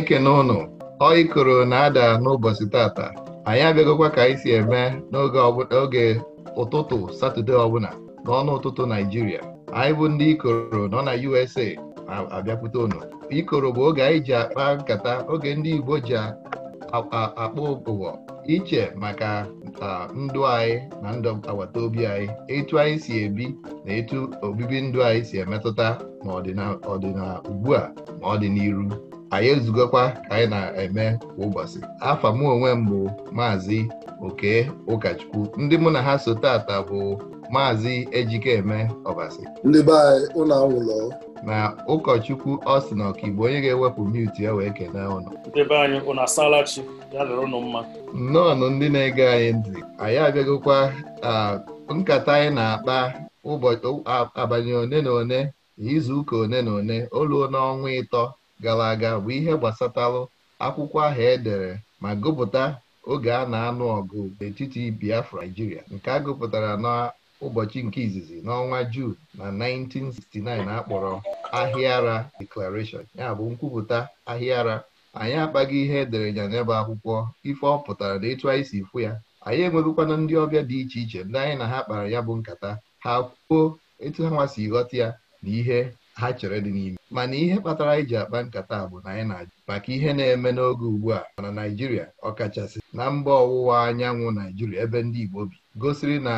Chineke n'ụnụ ụnụ ọ ikoro na-ada n'ụbọchị tata anyị abịagokwa ka anyị si eme n'oge ụtụtụ Satọde ọbụla n'ọnụ ụtụtụ Naijiria anyị bụ ndị ikoro nọ na USA abịakwute ụnụ ikoro bụ oge anyị ji akpa nkata oge ndị Igbo ji akpa ụbụbọ iche maka ndụ anyị na ndụ agbata obi anyị etu anyị si ebi na etu obibi ndụ anyị si emetụta ma ọ dị ugbu a ma ọ dị n'iru anyị ezugokwa ka anyị na-eme kwa ụbọchị afọ m onwe m bụ maazị oke ụkọchukwu ndị mụ na ha so tata bụ maazị ejikeme ọbasi ndị be anyị ụlọ anwụlọ na ụkọchukwu ọsịn ọkaigbo onye ga-ewepụ mute ya wee kene ụnụ nnọọnụ ndị na-ege anyị ntị anyị abịagokwa nkata anyị na-akpa ụbọchị abanye one na one izuụka one na one oluo n'ọnwa ịtọ gara aga bụ ihe gbasatalụ akwụkwọ ahụ edere ma gụpụta oge a na-anụ ọgụ n'etiti Biafra Naijiria nke a gụpụtara n'ụbọchị nke izizi n'ọnwa Juun na 1969 akpọrọ Ahịara Declaration ya bụ nkwupụta Ahịara anyị akpaghị ihe edere ya n'ebe akwụkwọ ife ọ pụtara na etu anyị si fụ ya anyị enweghịkwana ndị ọbịa dị iche iche ndị anyị na ha kpara ya bụ nkata ha kwuo etu ha nwasi ghọta ya na ihe ha chere dị n'ime mana ihe kpatara anyị e ji akpa nkata bụ na anyị na-ajụ maka ihe na-eme n'oge ugbu a mana Naijiria ọkachasị na mba ọwụwa anyanwụ Naijiria ebe ndị Igbo bi gosiri na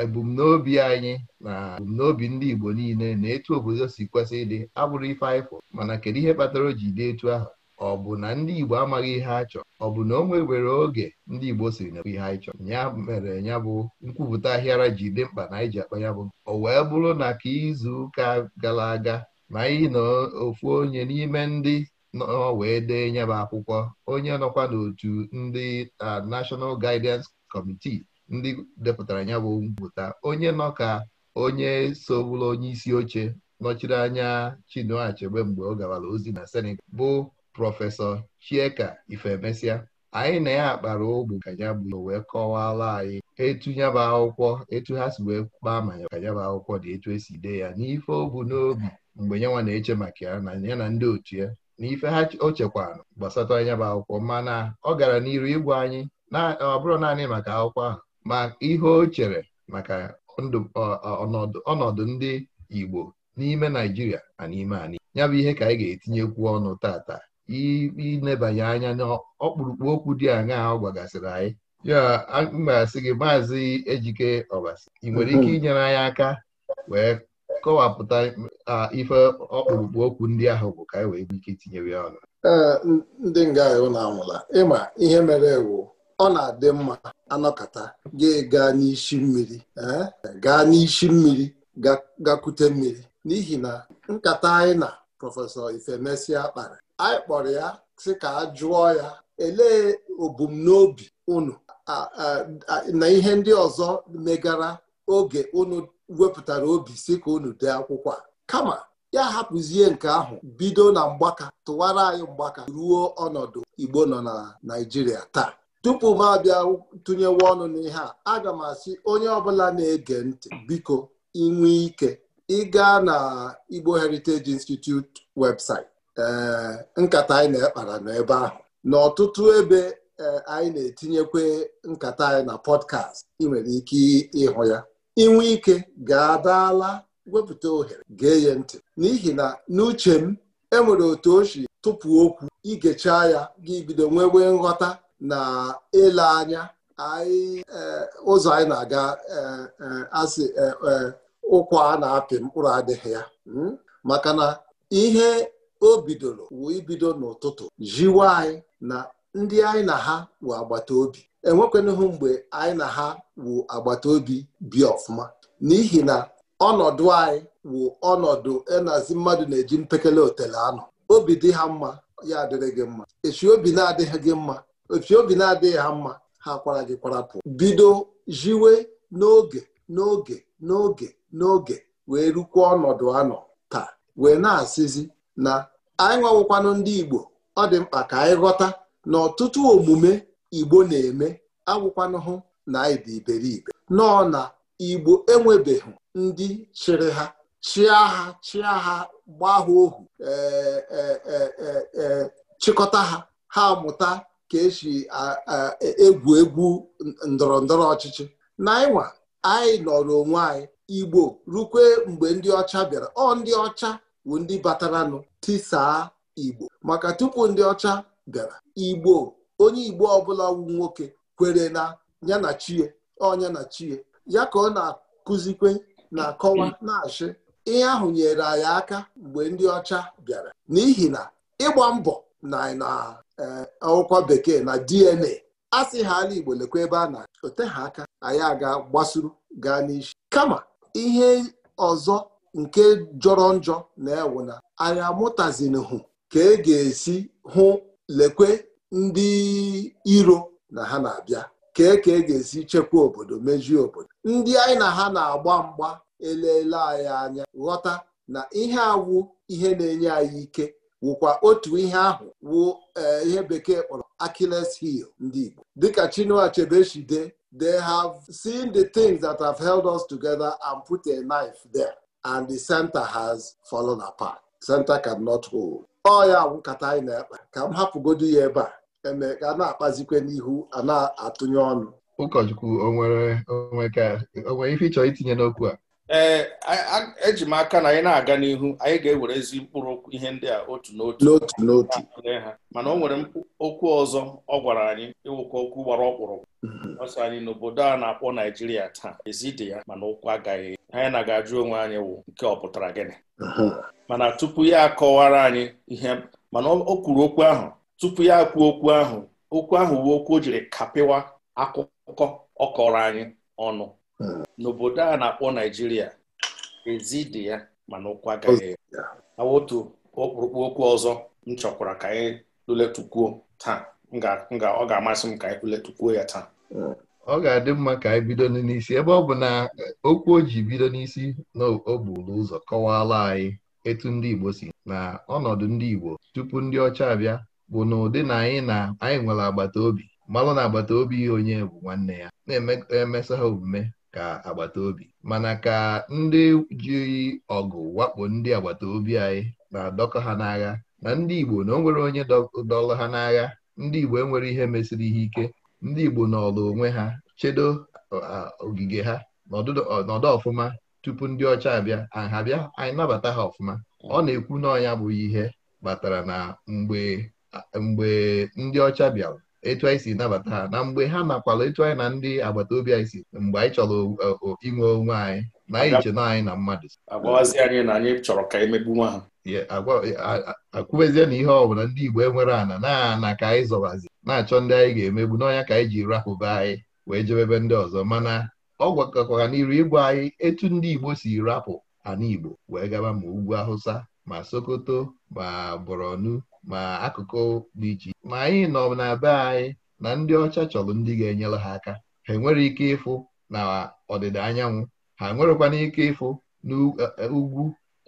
ebumnobi anyị na ebumnobi ndị Igbo niile na etu obodo si kwesị ịdị abụrụ ife anyịfụ mana kedu ihe kpatara o ji dị etu ahụ ọ bụ na ndị Igbo amaghị ihe a chọrọ ọ bụ na o nwewere oge ndị Igbo siri na ihe anyị chọrọ ya mere ya bụ nkwupụta ahịara ji dị mkpa na anyị ji akpa ya bụ o wee bụrụ na ka izu ụka gara aga na ịnọ ofu onye n'ime ndị nọ wee dee nyeba akwụkwọ onye nọkwa n'otu ndị National Guidance Committee ndị depụtara ya bụ mpụta onye nọ ka onye so bụrụ onye isi oche nọchiri anya chinuachegbe mgbe ọ gawara ozi na Senegal bụ prọfesọ Chieka Ifemesia anyị na ya kpara ogbu ka ya bụ wee kọwala anyị etu nyaba akwụkwọ etu ha si wee kpaa ma ka nyaba akwụkwọ dị etu esi dee ya n'ife obu n'obi mgbe ya na-eche maka ya na ya na ndị otu ya na ife ha o chekwana gbasata anya bụ akwụkwọ mana ọ gara n'iru ịgwa anyị ọ bụrụ naanị maka akwụkwọ ahụ ma ihe o chere maka ọnọdụ ndị Igbo n'ime Naijiria na n'ime anị ya bụ ihe ka anyị ga-etinyekwu ọnụ tata inebanye anya ọkpụrụkpụ okwu dị aṅaa ọ gwagasịrị anyị ya mgbasị gị maazị Ejike Ọbasi ị nwere ike mm-hmm. inyere anyị aka wee kọwapụta ife ọkpụrụkpụ okwu ndị ahụ bụ ka anyị e wee ike itinyere ya ọnụ e, ndị nga anwụla ịma ihe mere ewu ọ na-adị mma anọkata ga-ega n'isi mmiri gaa n'isi mmiri eh, gakwute mmiri n'ihi na nkata anyị na prọfesọ Ifemesia kpara anyị kpọrọ ya sị ka a jụọ ya elee obumnobi unu na ihe ndị ọzọ megara oge unu wepụtara obi si ka unu dee akwụkwọ a kama ya hapụzie nke ahụ bido na mgbaka tụwara anyị mgbaka ruo ọnọdụ Igbo nọ na Naịjirịa taa tupu m abịa tụnyewe ọnụ n'ihe a aga m asị onye ọbụla na-ege ntị biko inwe ike ịga na Igbo Heritage Institute website nkata anyị na-ekpara n'ebe ahụ n'ọtụtụ ebe e, anyị na-etinyekwa nkata anyị na pọdkast ị nwere ike ịhụ ya inwe ike ga-adaala wepụta ohere ga-enye ntị n'ihi na n'uche m enwere otu ochi tụpụ okwu igechaa ya ga ibido nwewe nghọta na ele anya anyị eh, ụzọ anyị na-aga eh, eh, asị ụkwa a na-apị mkpụrụ adịghị ya hmm? maka na ihe o bidoro wee ibido n'ụtụtụ jiwe anyị na ndị anyị na ha wee agbata obi enwekwanụhụ mgbe anyị na ha wu agbata obi bi ọfụma n'ihi na ọnọdụ anyị wu ọnọdụ enazi mmadụ na-eji mpekele otele anọ obi dị ha mma ya adịrị gị mma echi obi na-adịghị gị mma echi obi na-adịghị ha mma ha kwara gị kwarapụ bido jiwe n'oge n'oge n'oge n'oge wee rukwa ọnọdụ anọ taa wee na-asịzi na anyị nwawụkwanụ ndị Igbo ọ dị mkpa ka anyị ghọta na ọtụtụ omume igbo na-eme agwụkwanụhụ na anyị dị iberibe nọọ na igbo enwebeghị ndị chịrị ha chịa ha chịa ha gbaa ha ohu e, e, e, chịkọta ha ha mụta ka esi egwu egwu ndọrọ ndọrọ ọchịchị na ịnwa anyị nọrọ onwe anyị igbo rukwe mgbe ndị ọcha bịara ọ ndị ọcha bụ ndị bataranụ tisaa igbo maka tupu ndị ọcha bịara igbo onye igbo ọbụla wu nwoke kwere na ya na chie ọnya na chie ya ka ọ na-akụzikwe na-akọwa na-achị ihe ahụ nyere anyị aka mgbe ndị ọcha bịara n'ihi na ịgba mbọ na akwụkwọ e, bekee na DNA sị ha ala Igbo lekwa ebe a na ote ha aka anyị aga gbasuru gaa n'isi kama ihe ọzọ nke jọrọ njọ na-ewu na anyị amụtazinhụ ka e ga-esi hụ lekwe ndị iro na ha na-abịa kee ka e ga-esi chekwa obodo mejie obodo ndị anyị na ha na-agba mgba elele anyị anya ghọta na ihe awụ ihe na-enye anyị ike wụkwa otu ihe ahụ wụ eh, ihe bekee kpọrọ Achilles heel ndị Igbo dịka Chinua Achebe si they have seen the things that have held us together and put a knife there and the center has fallen apart. Center cannot hold. ọ ya nkata anyị na ekpe ka m hapụgodu ya ebe a eme ka a na-akpazikwe n'ihu a na-atụnye ọnụ ụkọchukwu onwere ife ịchọrọ itinye n'okwu a ee eji m aka na anyị na-aga n'ihu anyị ga-ewere ezi mkpụrụ ihe ndị a otu n'otu n'otu n'otu mana o nwere okwu ọzọ ọ gwara anyị ịwụkwa okwu gbara ọkpụrụkpụ mhm. ọsọ anyị n'obodo a na-akpọ Naijiria taa ezi dị ya mana ụkwụ agaghị anyị na ga-ajụ onwe anyị wụ nke ọ pụtara gịnị mana tupu ya akọwara anyị ihe mana o kwuru okwu ahụ tupu ya kwuo okwu ahụ okwu ahụ uwe okwu o jiri kapịwa akụkọ ọkọrọ anyị ọnụ n'obodo a na-akpọ Naijiria ezi dị ya mana ụkwụ agaghị awotu ọkpụrụkpụ okwu ọzọ m chọkwara ka anyị lụletukwuo taa ọ ga-amasị m ka anyị ya taa ọ ga-adị mma ka anyị bido n'isi ebe ọ bụ na okwu o ji bido n'isi na ụzọ kọwaala anyị etu ndị Igbo si na ọnọdụ ndị Igbo tupu ndị ọcha abịa bụ na ụdị na anyị na anyị nwere agbata obi malụ na agbata obi onye bụ nwanne ya na-emesa ha omume ka agbata obi mana ka ndị jiri ọgụ wakpo ndị agbata obi anyị na-adọkọ ha n'agha na ndị Igbo na o nwere onye dọlụ ha n'agha ndị Igbo enwere ihe mesịrị ihe ike ndị Igbo n'ọlụ onwe ha chedo ogige ha n'ọdụ ọfụma tupu ndị ọcha abịa aha bịa anyị nabata ha ọfụma ọ na-ekwu n'ọnya bụghị ihe kpatara na mgbe mgbe ndị ọcha bịara etu anyị si nabata ha na mgbe ha nakwala etu anyị na ndị agbata obi anyị si mgbe anyị chọrọ e, inwe onwe anyị na anyị che na anyị na mmadụ agwawazi anyị na anyị chọrọ ka emegbu nwa ha e, akwụbezie na ihe ọbụla ndị Igbo enwere ana na-ana ka anyị zọbazi na-achọ ndị anyị ga-emegbu n'ọnya ka anyị ji rahụba anyị wee jebebe ndị ọzọ mana ọ gwakọkwara n'iru ịgwa anyị etu ndị Igbo si rapụ ana Igbo wee gaba ma ugwu Hausa ma Sokoto ma Borno ma akụkụ dị iche ma anyị nọ na be anyị na ndị ọcha chọrọ ndị ga-enyere ha aka ha enwere ike ịfụ na ọdịda anyanwụ ha nwerekwana ike ịfụ n'ugwu e,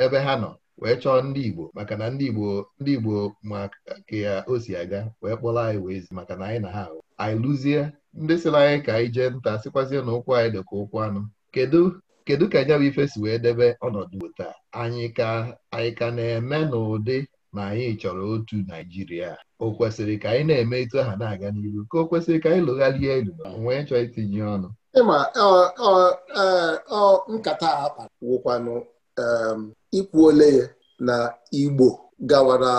e, ebe ha nọ wee chọọ ndị Igbo maka na ndị Igbo ndị Igbo maka ya o si aga wee kpọrọ anyị wee zi maka na anyị na ha ahụ anyị lụzie ndị sịrị anyị ka anyị jee nta sịkwazie na ụkwụ anyị dị ụkwụ anụ kedu kedu ka nya bụ ife si wee debe ọnọdụ taa anyị ka anyị ka na-eme n'ụdị na anyị chọrọ otu Naijiria o kwesịrị ka anyị na-eme etu aha na-aga n'iru ka o kwesịrị ka anyị lụgharịa elu onwe chọọ itinye ọnụ ịma nkata a kpara ikwuole ya na Igbo gawara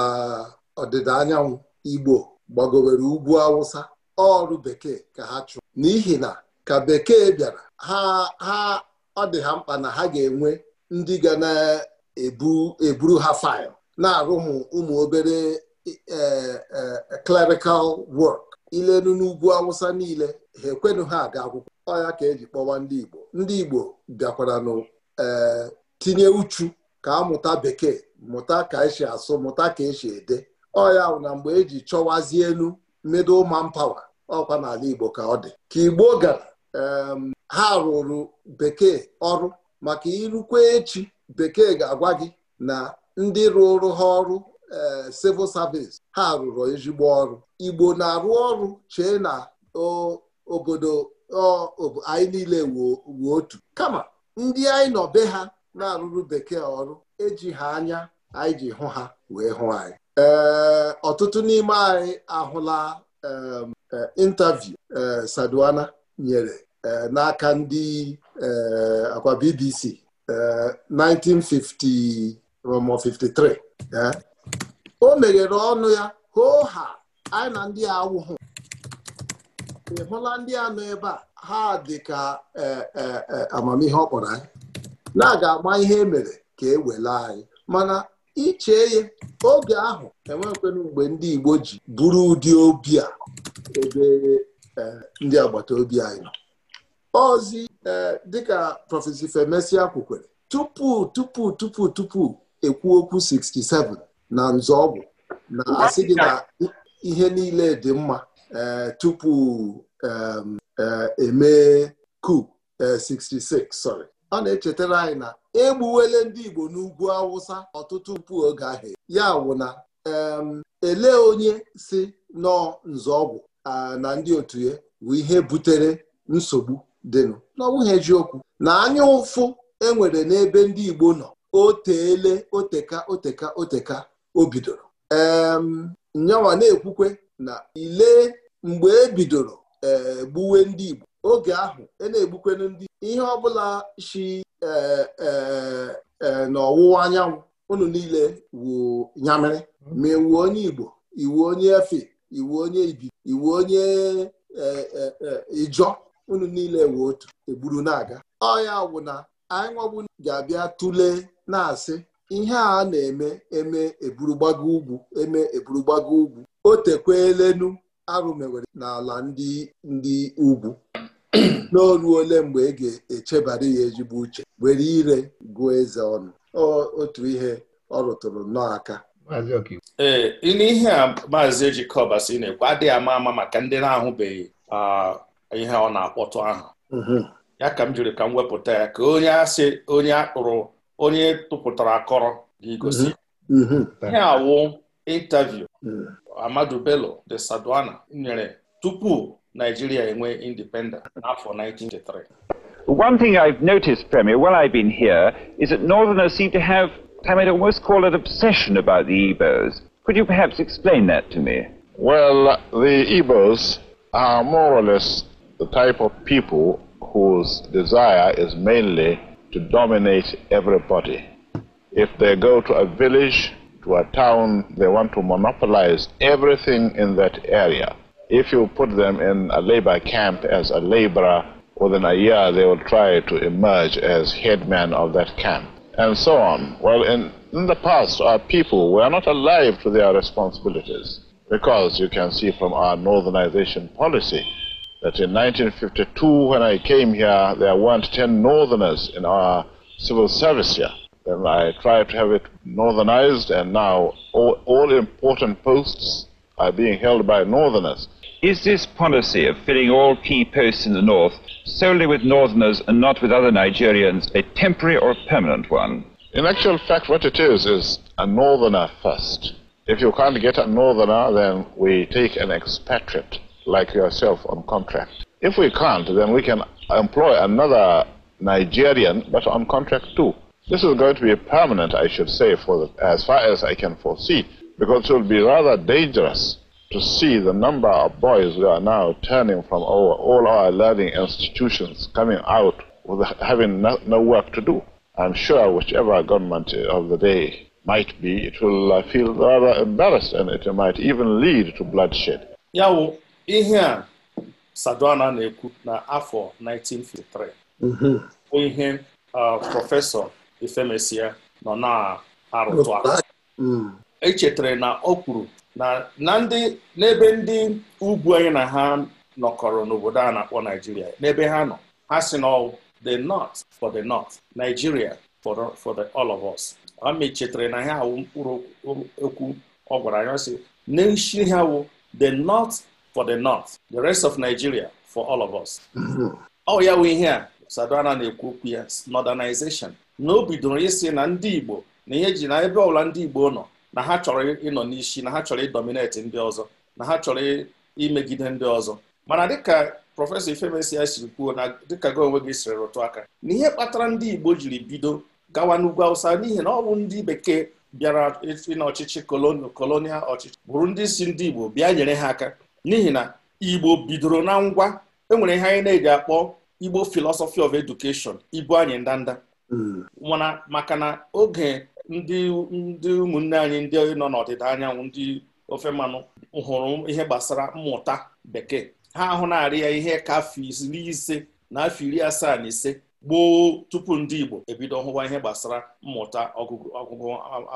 ọdịda anyanwụ Igbo gbagowere ugwu Awụsa ọrụ bekee ka ha chụọ, n'ihi na ka bekee bịara ha ha ọ dị ha mkpa na ha ga-enwe ndị ga na-eburu ha faịlụ na-arụ ụmụ obere e, e, e, clerical work ilenu n'ugwu awụsa niile ha ekwenụ ha aga akwụkwọ ọya ka eji kpọwa ndị Igbo ndị Igbo bịakwara nụ tinye uchu ka amụta bekee mụta ka esi asụ mụta ka esi ede ọya na mgbe eji chọwazie elu man pawa ọkwa n'ala Igbo ka ọ dị ka Igbo gara ha rụrụ bekee ọrụ maka irukwa echi bekee ga-agwa gị na ndị rụrụ ha ọrụ eh, civil service ha rụrụ ezigbo ọrụ Igbo na-arụ ọrụ chee na obodo anyị niile wuo otu kama ndị anyị nọ be ha na-arụrụ bekee ọrụ eji ha anya anyị ji hụ ha wee hụ anyị ee eh, ọtụtụ n'ime anyị ahụla eh, intaviu Saduana nyere n'aka ndị akwa BBC 1950 Rom 53 eh? o meghere ọnụ ya hoo ha anyị na ndị awụhụ ị hụla ndị a nọ ebe a ha dị ka e, e, e, amamihe ọ kpọrọ anyị na-aga ama ihe emere ka e wela anyị mana iche ihe oge ahụ enwekwena mgbe ndị Igbo ji bụrụ ụdị obi a ebe ndị agbata obi anyị nọ ozi dịka prọfesi Ifemesia kwukwere tupu tupu tupu tupu ekwu okwu 67 na nzọọgwụ na asị gị na ihe niile dị mma eh, tupu eh, emee coup 66 eh, sorry ọ na-echetara anyị na egbuwele ndị Igbo n'ugwu Awụsa ọtụtụ mpụ oge ahụ ya wụ na elee onye si nọọ nzọọgwụ na ndị otu ya bụ ihe butere nsogbu dịnụ n'ọnwụghị ejiokwu na anya ụfụ enwere n'ebe ndị Igbo nọ oteele oteka oteka oteka o bidoro nyawa na-ekwukwe na ile mgbe e bidoro ee eh, gbuwe ndị Igbo oge ahụ e na-egbukwenu ndị ihe ọbụla shi na eh, eh, n'ọwụwa anyanwụ unu niile wuo nyamịrị ma iwu e onye Igbo iwu onye Efe iwu onye Ibi iwu onye Ijọ unu niile wụ otu egburu na-aga ọ ya wụ na anyị nwabu ga-abịa tụlee na-asị ihe a na-eme eme eburugbago ugwu eme eburugbago ugwu o tekwelenu arụmewere n'ala ndị ndị ugwu n'olu ole mgbe ị e ga-echebara ya ezigbo uche were ire gụọ eze ọnụ otu ihe ọ rụtụrụ nnọọ ee n'ihe a maazị Ejikọba si na-ekwu adịghị ama ama maka ndị na-ahụbeghị ah, ihe ọ na-akpọtụ ahụ mhm. ya ka m jiri ka m wepụta ya ka onye asị onye akpụrụ onye tụpụtara akọrọ ga-egosi mm-hmm. mm-hmm. ihe awụ intaviu mm. Amadu Bello de sadwana nyere tupu Nigeria enwe independence n'afọ 1983 One thing I've noticed, Premier, while I've been here, is that Northerners seem to have, I might almost call it obsession about the Igbos. Could you perhaps explain that to me? Well, the Igbos are more or less the type of people whose desire is mainly to dominate everybody. If they go to a village, to a town, they want to monopolize everything in that area. If you put them in a labor camp as a laborer, within a year they will try to emerge as headman of that camp, and so on. Well, in, the past, our people were not alive to their responsibilities because you can see from our northernization policy that in 1952, when I came here, there weren't 10 northerners in our civil service here. Then I tried to have it northernized, and now all, all important posts are being held by northerners. Is this policy of filling all key posts in the north solely with northerners and not with other Nigerians a temporary or permanent one? In actual fact, what it is is a northerner first. If you can't get a northerner, then we take an expatriate. like yourself on contract. If we can't, then we can employ another Nigerian, but on contract too. This is going to be permanent, I should say, for the, as far as I can foresee, because it will be rather dangerous to see the number of boys we are now turning from our, all our learning institutions, coming out with having no, no, work to do. I'm sure whichever government of the day might be, it will feel rather embarrassed, and it might even lead to bloodshed. Yeah, ihe a Sadwana na-ekwu na afọ 1953 mhm. bụ ihe prọfesọ Ifemesia nọ na-arụtụ aka mm. echetara na o kwuru na ndị n'ebe ndị ugwu anyị na ha nọkọrọ n'obodo a na-akpọ Naijiria n'ebe ha nọ ha si na the north for the north Nigeria for the, for the all of us ha mechetara na ha awụ mkpụrụ okwu ọ gwara anyị ọ sị n'isi ha wụ the north for the north the rest of Nigeria for all of us ọ mm-hmm. oh, ya wụ ihe a Sadona na-ekwu okwu ya modernization na o bidoro ịsị na ndị Igbo na ihe ji na ebe ọbụla ndị Igbo nọ na ha chọrọ ịnọ n'isi na ha chọrọ ịdominate ndị ọzọ na ha chọrọ imegide ndị ọzọ mana dịka prọfesọ Ifemesi ya siri kwuo na dịka gị onwe gị sịrị rụtụ aka na ihe kpatara ndị Igbo jiri bido gawa n'ugwu Awụsa n'ihi na ọ bụ ndị bekee bịara ịna ọchịchị kolonial ọchịchị bụrụ ndị si ndị Igbo bịa nyere ha aka n'ihi na igbo bidoro na ngwa enwere ihe anyị na-eji akpọ igbo philosophy of education ibu anyị ndanda hmm. mana maka na oge ndị ndị ụmụnne anyị ndị nọ n'ọdịda anyanwụ ndị ofe mmanụ hụrụ ihe gbasara mmụta bekee ha ahụ na-arị ya ihe ka afọ iri ise na afọ iri asaa na ise gboo tupu ndị igbo ebido hụwa ihe gbasara mmụta ọgụgụ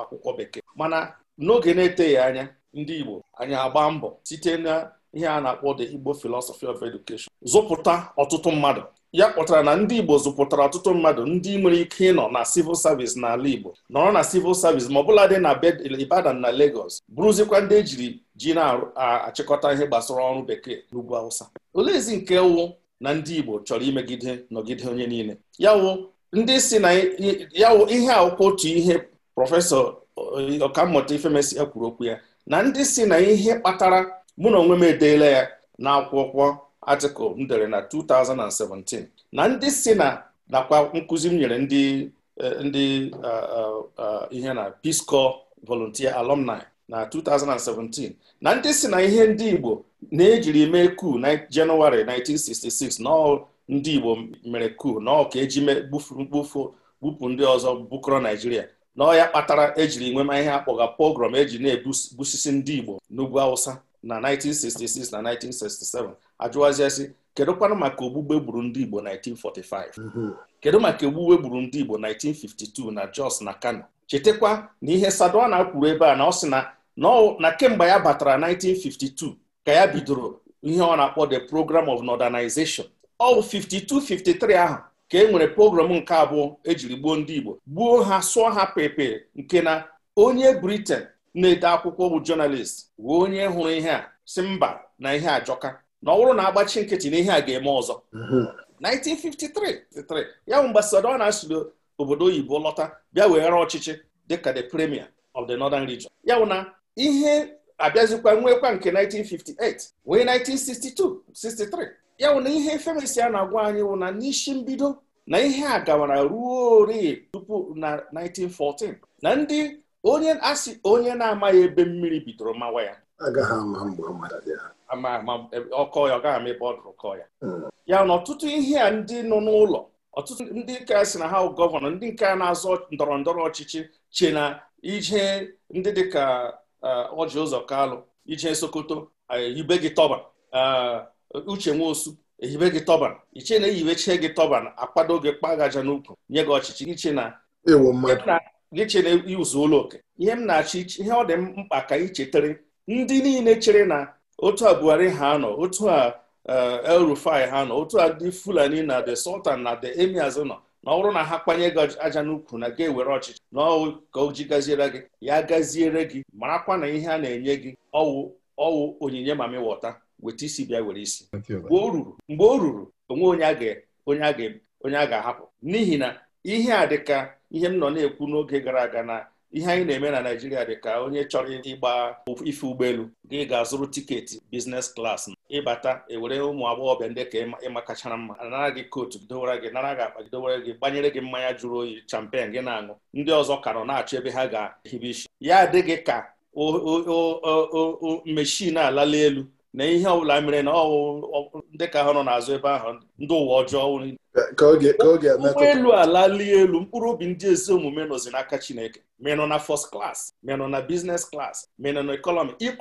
akwụkwọ bekee mana n'oge na-eteghị anya ndị Igbo anyị agba mbọ site na ihe a na-akpọ the Igbo philosophy of education zụpụta ọtụtụ mmadụ ya kpọtara na ndị Igbo zụpụtara ọtụtụ mmadụ ndị nwere ike ịnọ na civil service n'ala Igbo nọrọ na civil service ma ọbụla dị na Ibadan na Lagos bụrụzikwa ndị ejiri ji na-achịkọta ihe gbasara ọrụ bekee n'ugwu awụsa oleezi nke wụ na ndị Igbo chọrọ imegide nọgide onye niile yawụ ndị si na yawụ ihe akwụkwọ otu ihe prọfesọ ọkammụta Ifemesi kwuru okwu ya na ndị si na ihe kpatara mụ na onwe m edeela ya n'akwụkwọ atịkụl m dere na 2017 na ndị si na nakwa nkụzi m nyere ndị eh, eh, eh, ihe na Peace Corps volunteer alumni na 2017 na ndị si na ihe ndị Igbo na-ejiri mee kuu na Jenụwarị 1966 na ndị Igbo mere kuu na ọka eji bupụ ndị ọzọ bukọrọ Naijiria na ọ ya kpatara ejiri nwema ihe akpọga pogrom eji na-ebusisi ndị Igbo n'ugwu Awụsa na 1966 na 1967 ajụwaziasị kedụkwanụ maka ogbugbe gburu ndị Igbo 1945 mhm. kedu maka ogbugbe gburu ndị Igbo 1952 na Jos na Kano chetakwa na ihe Sadona na-akwuru ebe a na ọ sị na kemgbe ya batara 1952 ka ya bidoro ihe ọ na-akpọ the program of modernization ọ bụ 52 53 ahụ ka e nwere pogrom nke abụọ ejiri gbuo ndị Igbo gbuo ha sụọ ha pepe nke na onye briten na-ede akwụkwọ bụ jọnalist wee onye hụrụ ihe a si mba na ihe ajọka na ọ bụrụ na agbachi nkịtị na ihe a ga-eme ọzọ 1953 ya bụ mgbe na siri obodo oyibo lọta bịa were ọchịchị dịka the premier of the northern region ya bụ na ihe abịazikwa nwekwa nke 1958 wee 1962 63 ya wụ na ihe femesi a na-agwa anyị wụ na n'isi mbido na ihe a gawara ruo ori tupu na 1914 na ndị onye asị onye na-amaghị ebe mmiri bidoro mawa ya ama e, ọkọ ya ọ gaghị ama ebe ọ dụrụ kọ ya hmm. ya na ọtụtụ ihe a ndị nọ n'ụlọ ọtụtụ ndị nka si na ha gọvanọ ndị nke na-azọ ndọrọ ndọrọ ọchịchị che na ije ndị ka ọjị uh, ụzọ kalụ ije sokoto ibe uh, gị tọba uh, uche nwosu ehibe gị tọban iche na ehibeche gị tọban akwado gị aja n'ukwu nye gị ọchịchị iche na gị che na izu ụlọ oke ihe m na-achọ ihe ọ dị mkpa ka anyị ndị niile chere na otu a Buhari ha nọ otu a eh, El Rufai ha nọ otu a dị Fulani na the Sultan na the emi nọ na ọ na ha kpanye gị aja n'ukwu na ga-ewere ọchịchị na ọwụ ka o ji gaziere gị ya gaziere gị marakwa na ihe a na-enye gị ọwụ ọwụ onyinye mami weta isi bịa were isi mgbe o ruru mgbe ruru onwe onye a onye a ga-ahapụ n'ihi na ihe a dịka ihe m nọ na-ekwu n'oge gara aga na ihe anyị na-eme na Naịjirịa dịka onye chọrọ ịgba ife ụgbọelu gị ga-azụrụ tiketi biznes klas ịbata ewere ụmụ agbọghọbịa ndị ka ịma kachara mma anara gị kootu gidowere gị nara gị akpa gidowere gị gbanyere gị mmanya jụrụ oyi champen gị na-aṅụ ndị ọzọ ka nọ na-achọ ebe ha ga-ehibe isi ya adịghị ka meshin alala elu na ihe ọbụla mere na ọwụ ndị ka ha nọ n'azụ ebe ahụ ndị ụwa ọjọọ ụgbọelu alali elu mkpụrụ obi ndị ezi omume nọzi n'aka Chineke menọ na first class menọ na business class menọ na economy gị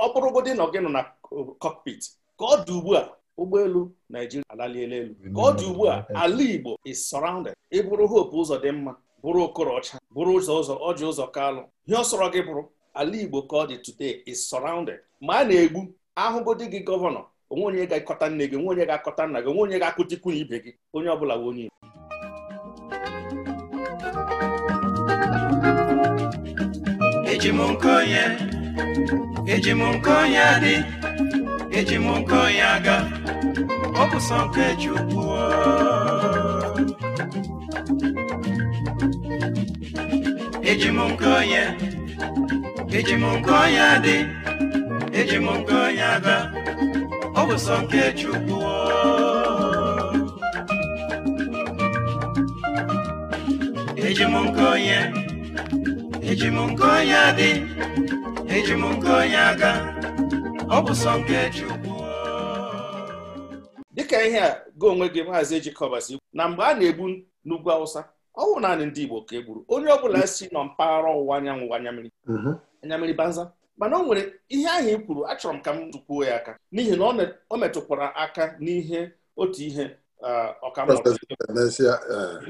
nọ na uh, cockpit ka ọ dị ugbu a ụgbọelu Naijiria alaliela elu ka ọ dị ugbu a ala Igbo is surrounded ịbụrụ hope ụzọ dị mma bụrụ okorocha bụrụ ụzọ ụzọ ọjị ụzọ kalụ ihe ọ sọrọ gị bụrụ ala Igbo ka ọ dị today is surrounded ma a na-egbu ahụgodi gị gọvanọ onwe onye ga-akọta nne gị onwe onye ga-akọta nna gị onwe onye ga-akụtikwu ibe gị onye ọ bụla onye Igbo eji m nke onye eji m nke onye adị eji m nke onye aga ọ bụ nke Chukwu eji m nke onye eji m nke onye adị eji m nke onye aga, ọ bụ sọ nke Chukwu eji m nke onye eji m nke onye adị eji m nke onye aga ọ bụ sọ nke Chukwu dịka ihe a gị onwe gị maazị ejikọbasi na mgbe a na-egbu n'ugwu Awụsa ọ wụ naanị ndị Igbo ka egburu, onye ọ bụla si nọ mpaghara ọwụwa anyanwụ anyamiri. Mhm. anyammiri banza mana o nwere ihe ahụ i e kwuru achọrọ m ka m tụkwuo ya aka n'ihi na o metụkwara aka n'ihe otu ihe ọkammesịa e.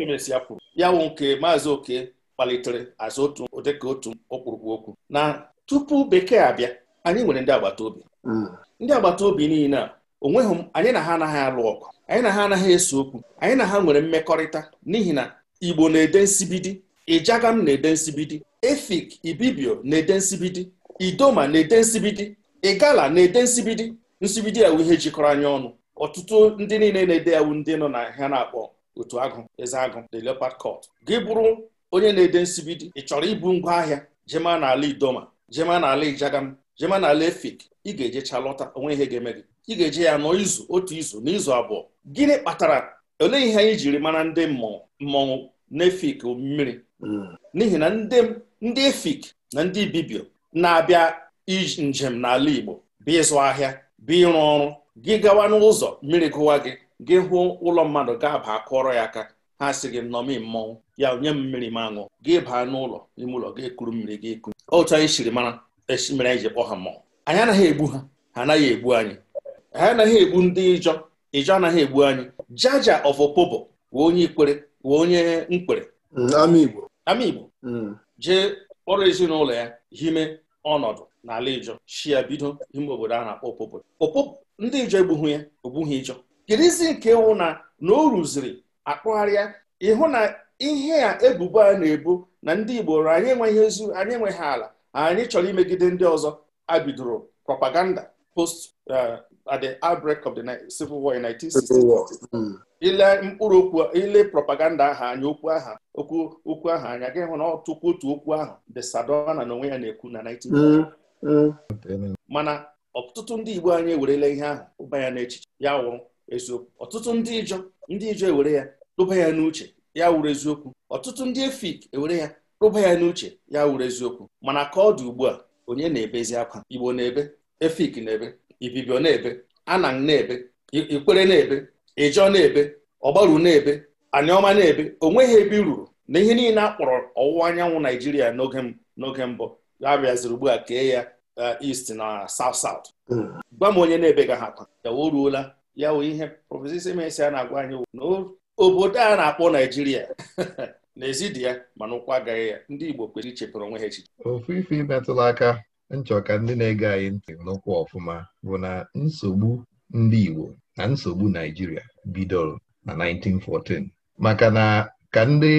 kwuru ya bụ nke maazị oke kpalitere azụ otu odeka otu okpurukpu okwu na tupu bekee abịa anyị nwere ndị agbata obi mm. ndị agbata obi niile a onweghị anyị na ha anaghị alụ ọgụ anyị na ha anaghị eso okwu anyị na ha nwere mmekọrịta n'ihi na igbo na-ede nsibidi ijagam na-ede nsibidi efik ibibio na-ede nsibidi idoma na-ete nsibidi ịgala na-ete nsibidi nsibidi ya ihe jikọrọ anya ọnụ ọtụtụ ndị niile na-ede yawu ndị nọ na ha na-akpọ otu agụ eze agụ the leopard gị bụrụ onye na-ede nsibidi ị chọrọ ibu ngwa ahịa jema n'ala idoma jema n'ala ijagam jema n'ala efik ị ga-ejecha lọta onwe ihe ga-eme gị ị ga-eje ya nọ izu otu izu na izu abụọ gịnị kpatara olee ihe anyị jiri mara ndị mmọnwụ na n'efik mmiri hmm. n'ihi na ndị efik na ndị bibio na-abịa njem n'ala Igbo bịa ịzụ ahịa bịa ịrụ ọrụ gị gawa n'ụzọ mmiri gụwa gị gị hụ ụlọ mmadụ ga-aba kụọrọ ya aka ha sị gị nnọmi mmọnwụ ya nye m mmiri m aṅụ gị baa n'ụlọ ime ụlọ gị kuru mmiri gị ekuru otu anyị siri mara e mere anyị e ji kpọ ha mmọnwụ anyị anaghị egbu ha ha anaghị egbu anyị ha anaghị egbu ndị ịjọ ịjọ anaghị egbu anyị jaja of opobo wee onye ikwere wee onye nkwere ama Igbo mm. jee kpọrọ ezinụlọ ya hime ọnọdụ n'ala ijọ shia bido ime obodo a na-akpọ Opobo Opobo ndị ijọ egbughị ya ogbughị ijọ kedizi nke ịwụ na na o rụziri akpụgharịa ịhụ na ihe a ebubo a na-ebu na ndị Igbo anyị enweghị ezu anyị enweghị ala anyị chọrọ imegide ndị ọzọ a bidoro propaganda post eh, at the outbreak of the civil war in 1960 mm. ile mkpụrụ okwu ile propaganda aha anya okwu aha okwu okwu aha anya gị hụ na ọtụkwu otu okwu ahụ the Sadona na onwe ya na-ekwu na 19 mm, mm. mana ọtụtụ ndị Igbo anyị ewerela ihe ahụ ụba ya n'echiche ya wụrụ eziokwu ọtụtụ ndị ijọ ndị ijọ ewere ya tụba ya n'uche ya wụrụ eziokwu ọtụtụ ndị efik ewere ya tụba ya n'uche ya wụrụ eziokwu mana ka ọ dị ugbu a onye na-ebezi akwa Igbo na-ebe efik na-ebe ibibio na-ebe anang na-ebe ikwere na-ebe ịjọ na-ebe ọgbaru na-ebe aniọma na-ebe ruru na ihe niile akpọrọ ọwụwa anyanwụ naijiria n'oge mbụ ya bịaziri ugbu a kee ya eh, east na south south hmm. gwa m onye na-ebe ga ha akwa o ruola ya wụ ihe prọfesọ mesi a na-agwa anyị na obodo a na-akpọ naijiria n'ezi ezidi ya mana ụkwụ agaghị ya ndị igbo kwesịrị ichepụrụ onwe ha echiche ofu ife imetụla aka Nchọka ndị na-ege anyị ntị n'ụkwụ ọfụma bụ na nsogbu ndị Igbo na nsogbu Naijiria bidoro na 1914 maka na ka ndị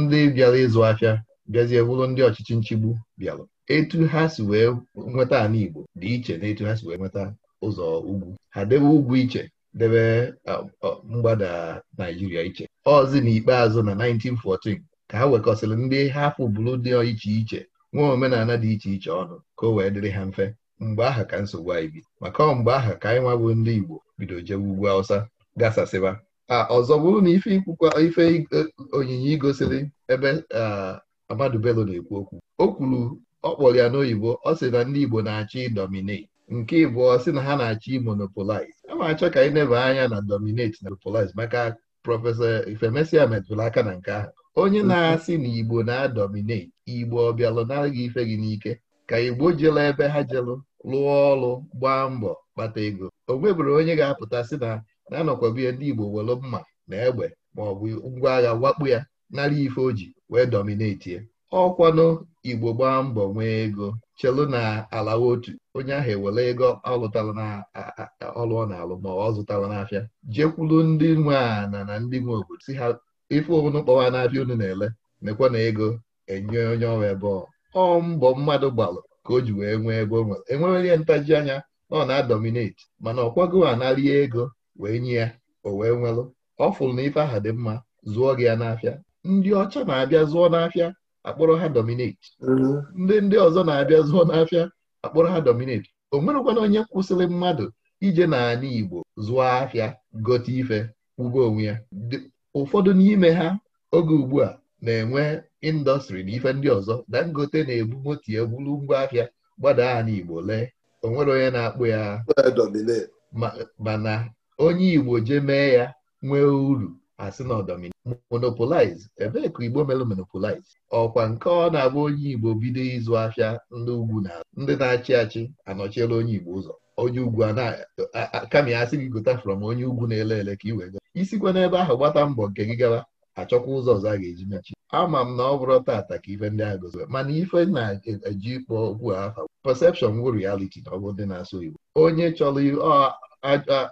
ndị bịara ịzụ afịa bịazie bụrụ ndị ọchịchị nchigbu bịara etu ha si wee nweta ala Igbo dị iche na etu ha si wee nweta ụzọ ugwu ha debe ugwu iche debe mgbada Naijiria iche ọzi na ikpeazụ na 1914 ka ha wekọsịrị ndị ha fụbụrụ dị iche iche nwa omenala dị iche iche ọnụ ka o wee dịrị ha mfe mgbe aha ka nsogbu anyị bi maka ọ mgbe aha ka anyị nwabụ ndị Igbo bido jewe ugwu Hausa gasasịba a ọzọ bụrụ na ife ikwukwa ife e, onyinye igosiri ebe Amadu Bello na-ekwu okwu o kwuru ọ kpọrọ ya n'oyibo ọ sị na ndị Igbo na-achọ ịdominate nke ịbụọ sị na ha na-achọ imonopolize a ma achọ ka anyị neba anya na dominate na monopolize maka prọfesọ Ifemesia metụrụ aka na nke ahụ onye na-asị na Igbo na-adominate Igbo ọ bịalụ nara gị ife gị n'ike ka Igbo jelu ebe ha jelu lụọ ọrụ gbaa mbọ kpata ego o nwebụrụ onye ga-apụta sị na na-anọkwabihe ndị Igbo welu mma na egbe ma ọ bụ ngwa agha wakpo ya nara ife o ji wee ya ọkwanụ Igbo gbaa mbọ nwee ego chelụ na ala otu onye ahụ ewere ego ọ lụtara na ọ na-alụ ma ọ zụtara n'afịa jekwuru ndị nwe ana na ndị nwe obodo si ha ife unu kpọwa na-abịa unu na-ele mekwa na ego enye onye ọrụ ebe ọ mbọ mmadụ gbalụ ka o ji wee nwee ego nwere enwere ihe ntaji anya na ọ na-adominate mana ọ kwago ego wee nye ya o wee nwelụ ọ fụrụ na ife aha dị mma zụọ gị ya n'afịa ndị ọcha na-abịa zụọ n'afịa akpọrọ ha dominate mm-hmm. ndị ndị ọzọ na-abịa zụọ n'afịa akpọrọ ha dominate o nwerekwana onye kwụsịrị mmadụ ije n'ala Igbo zụọ afịa gote ife kwụgo onwe ya ụfọdụ n'ime ha oge ugbu a na-enwe indọstrị na ife ndị ọzọ dangote na-ebu motie egburu ngwa ahịa gbada ha n'igbo lee onwere onye na-akpụ ya mana onye igbo je mee ya nwee uru asị na ọdọmini monopolize ebee ka igbo mere monopolize ọkwa nke ọ na-abụ onye igbo bido ịzụ ahịa ndị ugwu na ndị na-achị achị anọchiela onye igbo ụzọ onye ugwu kama ya asị gị gota from onye ugwu na-ele ele ka iwee isikwa n'ebe ahụ gbata mbọ nke gị gawa achọkwa ụzọ ọzọ a ga-eji mechi ama m na ọ bụrụ tata ka ife ndị a mana ife na-eji ịkpọ okwu afa perception wụ reality na ndị na-asụ Igbo onye chọrọ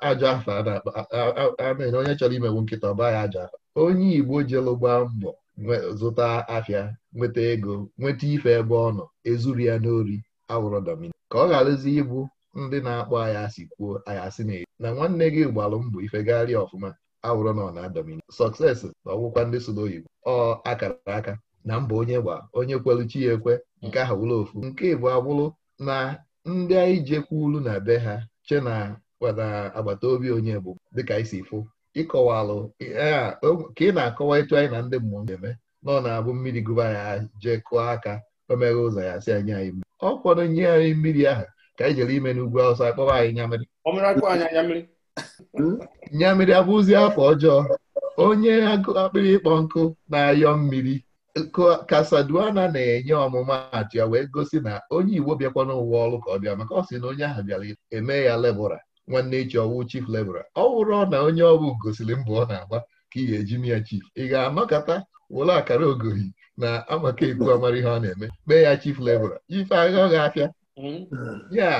ajọ afa na onye chọrọ imewu nkịta ọba ya ajọ afa onye Igbo jelu gbaa mbọ zụta afịa nweta ego nweta ife ebe ọ nọ ezuru ya n'ori awụrọ domini ka ọ gharazi ịbụ ndị na-akpọ anyị asị kwuo anyị asị na na nwanne gị gbalụ mbọ ife gagharịa ọfụma na nọ na domin sọksesi na ọgwụkwa ndị so n'oyibo ọ akara aka na mba onye gba onye kwelu chi ya ekwe nke ahụ wụrụ ofu nke bụ abụrụ na ndị anyị ulu na be ha che na agbata obi onye bụ dịka isi fụ ịkọwalụ e, ka ị na-akọwa etu anyị na ndị mmụọ na-eme ọ na-abụ mmiri gụba ya jee kụọ aka o meghe ụzọ ya si anyị anyị mmiri ọ kwado nye anyị mmiri ahụ ka anyị jere ime n'ugwu awụsa akpọba anyị nya mmiri nyamiri abụzi afọ ọjọọ onye akpịrị ịkpọ nkụ na-ayọ mmiri Kasaduana na-enye ọmụma atụ ya wee gosi na onye Igbo bịakwa n'ụwa ọrụ ka ọ bịa maka ọ sị na onye ahụ bịara eme ya lebụra nwanne echi ọwụ chief lebụra ọ wụrụ na onye ọbụ gosiri mbụ ọ na-agba ka ị ga-eji miya chief ị ga-anọkọta wụrụ akara ogohi na amaka ekwu amara ihe ọ na-eme mee ya chief lebụra ife agha ọ ga-afịa hmm. ya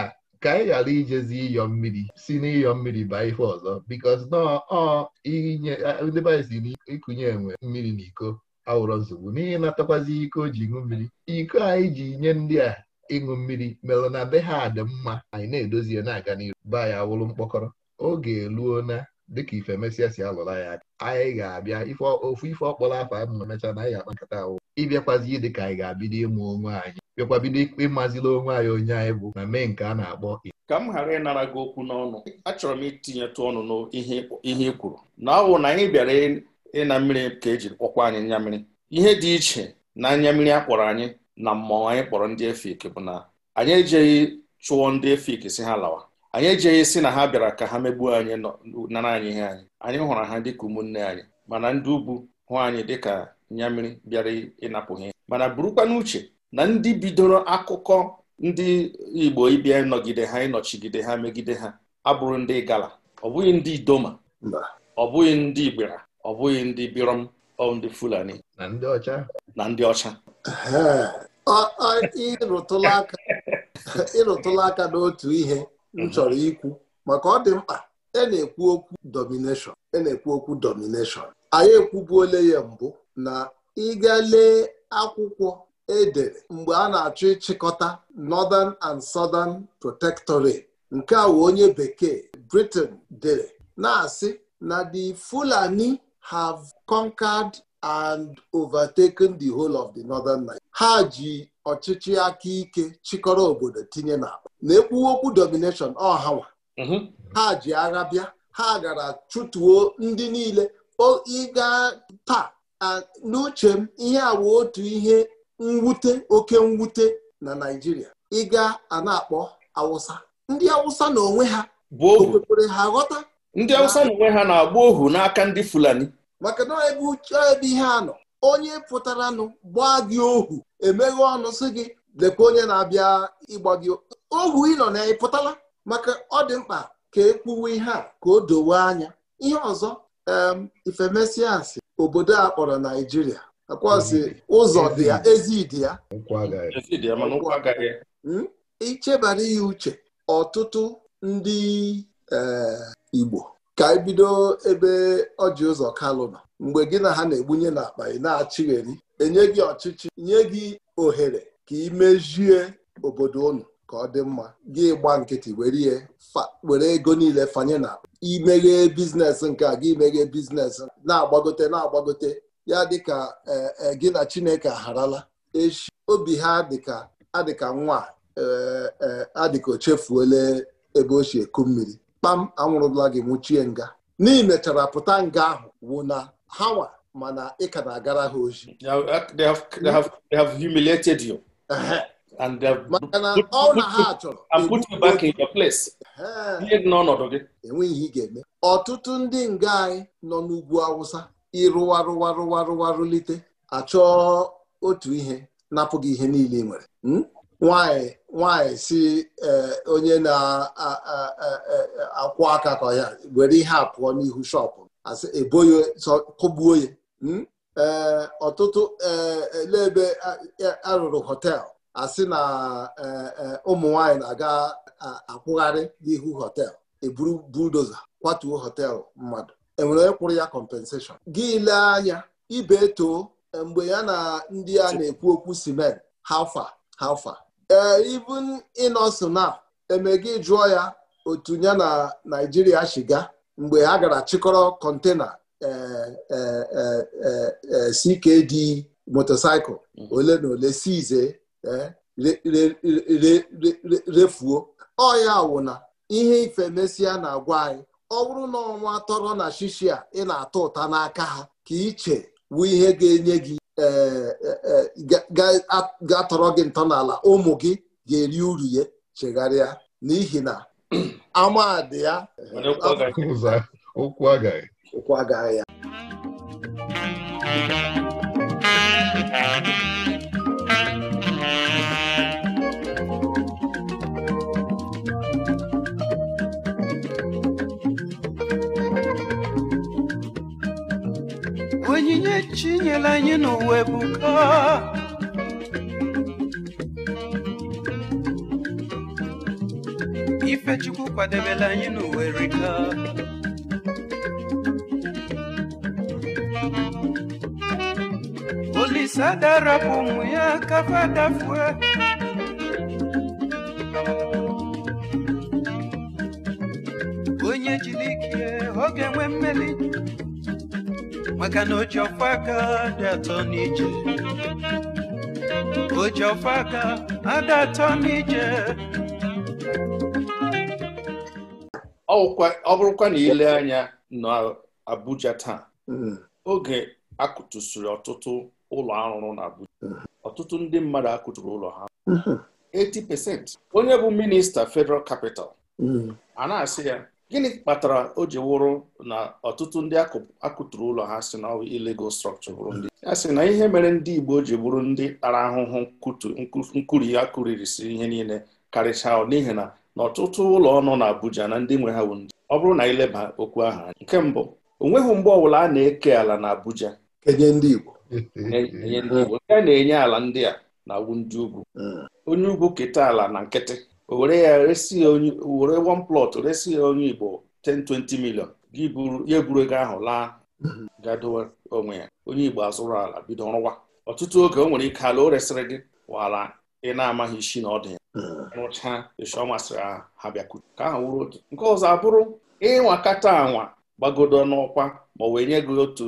ka anyị ghara ijezi ịyọ mmiri si n'ịyọ mmiri baa ife ọzọ biko nọọ ndị si n'ịkụnye enwe mmiri na iko awụrọ nsogbu n'ihi natakwazi iko ji ṅụ mmiri iko anyị e ji nye ndị a ịṅụ mmiri merụ na be ha dị mma anyị na-edozie na-aga n'iru be anyị wụrụ mkpọkọrọ oge eruo na dịka ife mesịa si alụla ya aka anyị ga-abịa ofu ife ọkpọrọ afọ a ma emechaa na anyị ga-akpa nkata ahụ ịbịakwazi dị ka anyị ga-abido ịmụ onwe anyị bịakwa bido ikpe ịmazila onwe anyị onye anyị bụ na mee nke a na-akpọ ka m ghara ịnara gị okwu n'ọnụ achọrọ m itinyetụ ọnụ n'ihe ị kwuru na ọwụ na anyị bịara ịna mmiri ka ejiri kpọkwa anyị nya mmiri ihe dị iche na anya mmiri a kpọrọ anyị na mmọnwụ anyị kpọrọ ndị efik bụ na anyị ejeghị chụọ ndị efik si ha lawa anyị ejeghị si na ha bịara ka ha megbuo anyị nara anyị ihe anyị anyị hụrụ ha dịka ụmụnne anyị mana ndị ugwu hụ anyị dịka nya mmiri bịara ịnapụghị mana burukwa n'uche na ndị bidoro akụkọ ndị Igbo ịbịa ịnọgide ha ịnọchigide ha megide ha abụrụ ndị gala ọ bụghị ndị idoma ọ bụghị ndị igbera ọ bụghị ndị birom ọ ndị fulani na ndị ọcha na ndị ọcha ịrụtụla aka aka n'otu ihe m mhm. chọrọ ikwu maka ọ dị mkpa e na-ekwu okwu domination e na-ekwu okwu domination anyị ekwubuole ya mbụ na ịga lee akwụkwọ edere mgbe a na-achọ ịchịkọta Northern and Southern Protectorate nke a wee onye bekee Britain dere na-asị na the Fulani have conquered and overtaken the whole of the Northern Nigeria. ha ji ọchịchị aka ike chịkọrọ obodo tinye na na ekwuwokwu domination ọhanwa mhm. ha ji agha bịa ha gara chụtuo ndị niile ịga taa n'uche m ihe awa otu ihe mwute oke mwute na Naijiria. ịga a na-akpọ Awụsa ndị Awụsa na onwe ha bụ ohu ha ghọta ndị Awụsa na onwe ha na-agba ohu n'aka ndị Fulani maka na ebe uche ebe ihe a nọ onye nụ gbaa gị ohu emeghe ọnụ sị gị lekwa onye na-abịa ịgba gị ohu ị nọ na ị pụtala maka ọ dị mkpa ka e kwuwe ihe a ka o dowe anya ihe ọzọ Ifemesiasi. obodo a kpọrọ Naijiria. akwazi ụzọ dị ya ezi dị ya hmm? ichebara ya uche ọtụtụ ndị eh, Igbo ka ebido ebe ọjị ụzọ kalụ mgbe gị na ha na-egbunye n'akpa ị na-achịgheri enye gị ọchịchị nye gị ohere ka ị mejie obodo unu ka ọ dị mma gị gba nkịtị were ego niile fanye na imeghee biznes nke a gị meghee biznes na-agbagote na-agbagote ya dịka e, e, gị na Chineke agharala echi obi ha dịka adịka nwa e, adịka o chefuola ebe o si eku mmiri kpam anwụrụla gị nwụchie nga n'ihi mechara pụta nga ahụ wụ na hawa mana ị ka na-agara ha oji ọ na enweghị ihe ị ga-eme ọtụtụ ndị nga anyị nọ n'ugwu Awụsa ịrụwarụwarụwarụwarụlite achọọ otu ihe napụghị ihe niile ị nwere hmm? nwanyị nwanyị si e, onye na-akwụ aka ka ya were ihe a pụọ n'ihu shọpụ asị e kụgbuo ya ee hmm? ọtụtụ e, ele arụrụ họteelụ asị na ụmụ nwanyị na-aga akwụgharị n'ihu họteelụ eburu kwatuo họtel mmadụ enwere onye kwụrụ ya compensation gị lee anya ibe too mgbe ya na ndị a na-ekwu okwu simen hafa hafa ee eh, ibun inosona eme gị jụọ ya otu ya na naijiria shiga mgbe ha gara chịkọrọ kọntena CKD motosaịkụl ole na ole si ize eh, refuo ọya wụna ihe ife mesịa na-agwa anyị ọ bụrụ na ọnwa tọrọ na shishi a ị na-atọ ụta n'aka ha ka iche bụ ihe ga-enye gị e, e, e, ga-atọrọ gị ntọala ụmụ gị ga-eri uru ya chegharịa n'ihi na amadị ya ụkwụ agaghị ya chinyela anyị n'ụwa Ife ifechukwu kwadebela anyị n'uwe erika olisada rapụ ụmụ ya kafa dafue onye jiri ike ọ ga-enwe mmeli maka na oji aka dị atọ n'ije oji adị atọ n'ije ọ bụrụkwa na ile anya n'abuja taa hmm. oge akụtụsiri ọtụtụ ụlọ arụrụ na Abuja hmm. ọtụtụ ndị mmadụ akụtụrụ ụlọ ha 80% hmm. onye bụ minista federal capital a na-asị ya gịnị kpatara o ji wụrụ na ọtụtụ ndị akụtụrụ ụlọ ha si na illegal structure bụrụ ndị ya sị na ihe mere ndị Igbo ji bụrụ ndị tara ahụhụ nkuri ya kuririsi ihe niile karịchaa n'ihi na na ọtụtụ ụlọ ọnụ na Abuja na ndị nwe ha bụ ndị ọ bụrụ na ileba okwu ahụ anyị. nke mbụ o nweghị mgbe ọbụla a na-eke ala na Abuja ndị Igbo ndị Igbo nke a na-enye ala ndị a na-awụ ndị ugwu hmm. onye ugwu keta ala na nkịtị were ya resi were one plot resi ya onye Igbo 1020 20 million ya eburu ego ahụ laa gadowe onwe ya onye Igbo azụrụ ala bido rụwa ọtụtụ oge o nwere ike ala o resịrị gị wala ị na-amaghị isi na ọ dị ya hmm. rụchaa esi masịrị ha bịakwuru ka ahụ wụrụ otu nke ọzọ abụrụ kata anwa gbagodo n'ọkwa ma ọ wee nye gị otu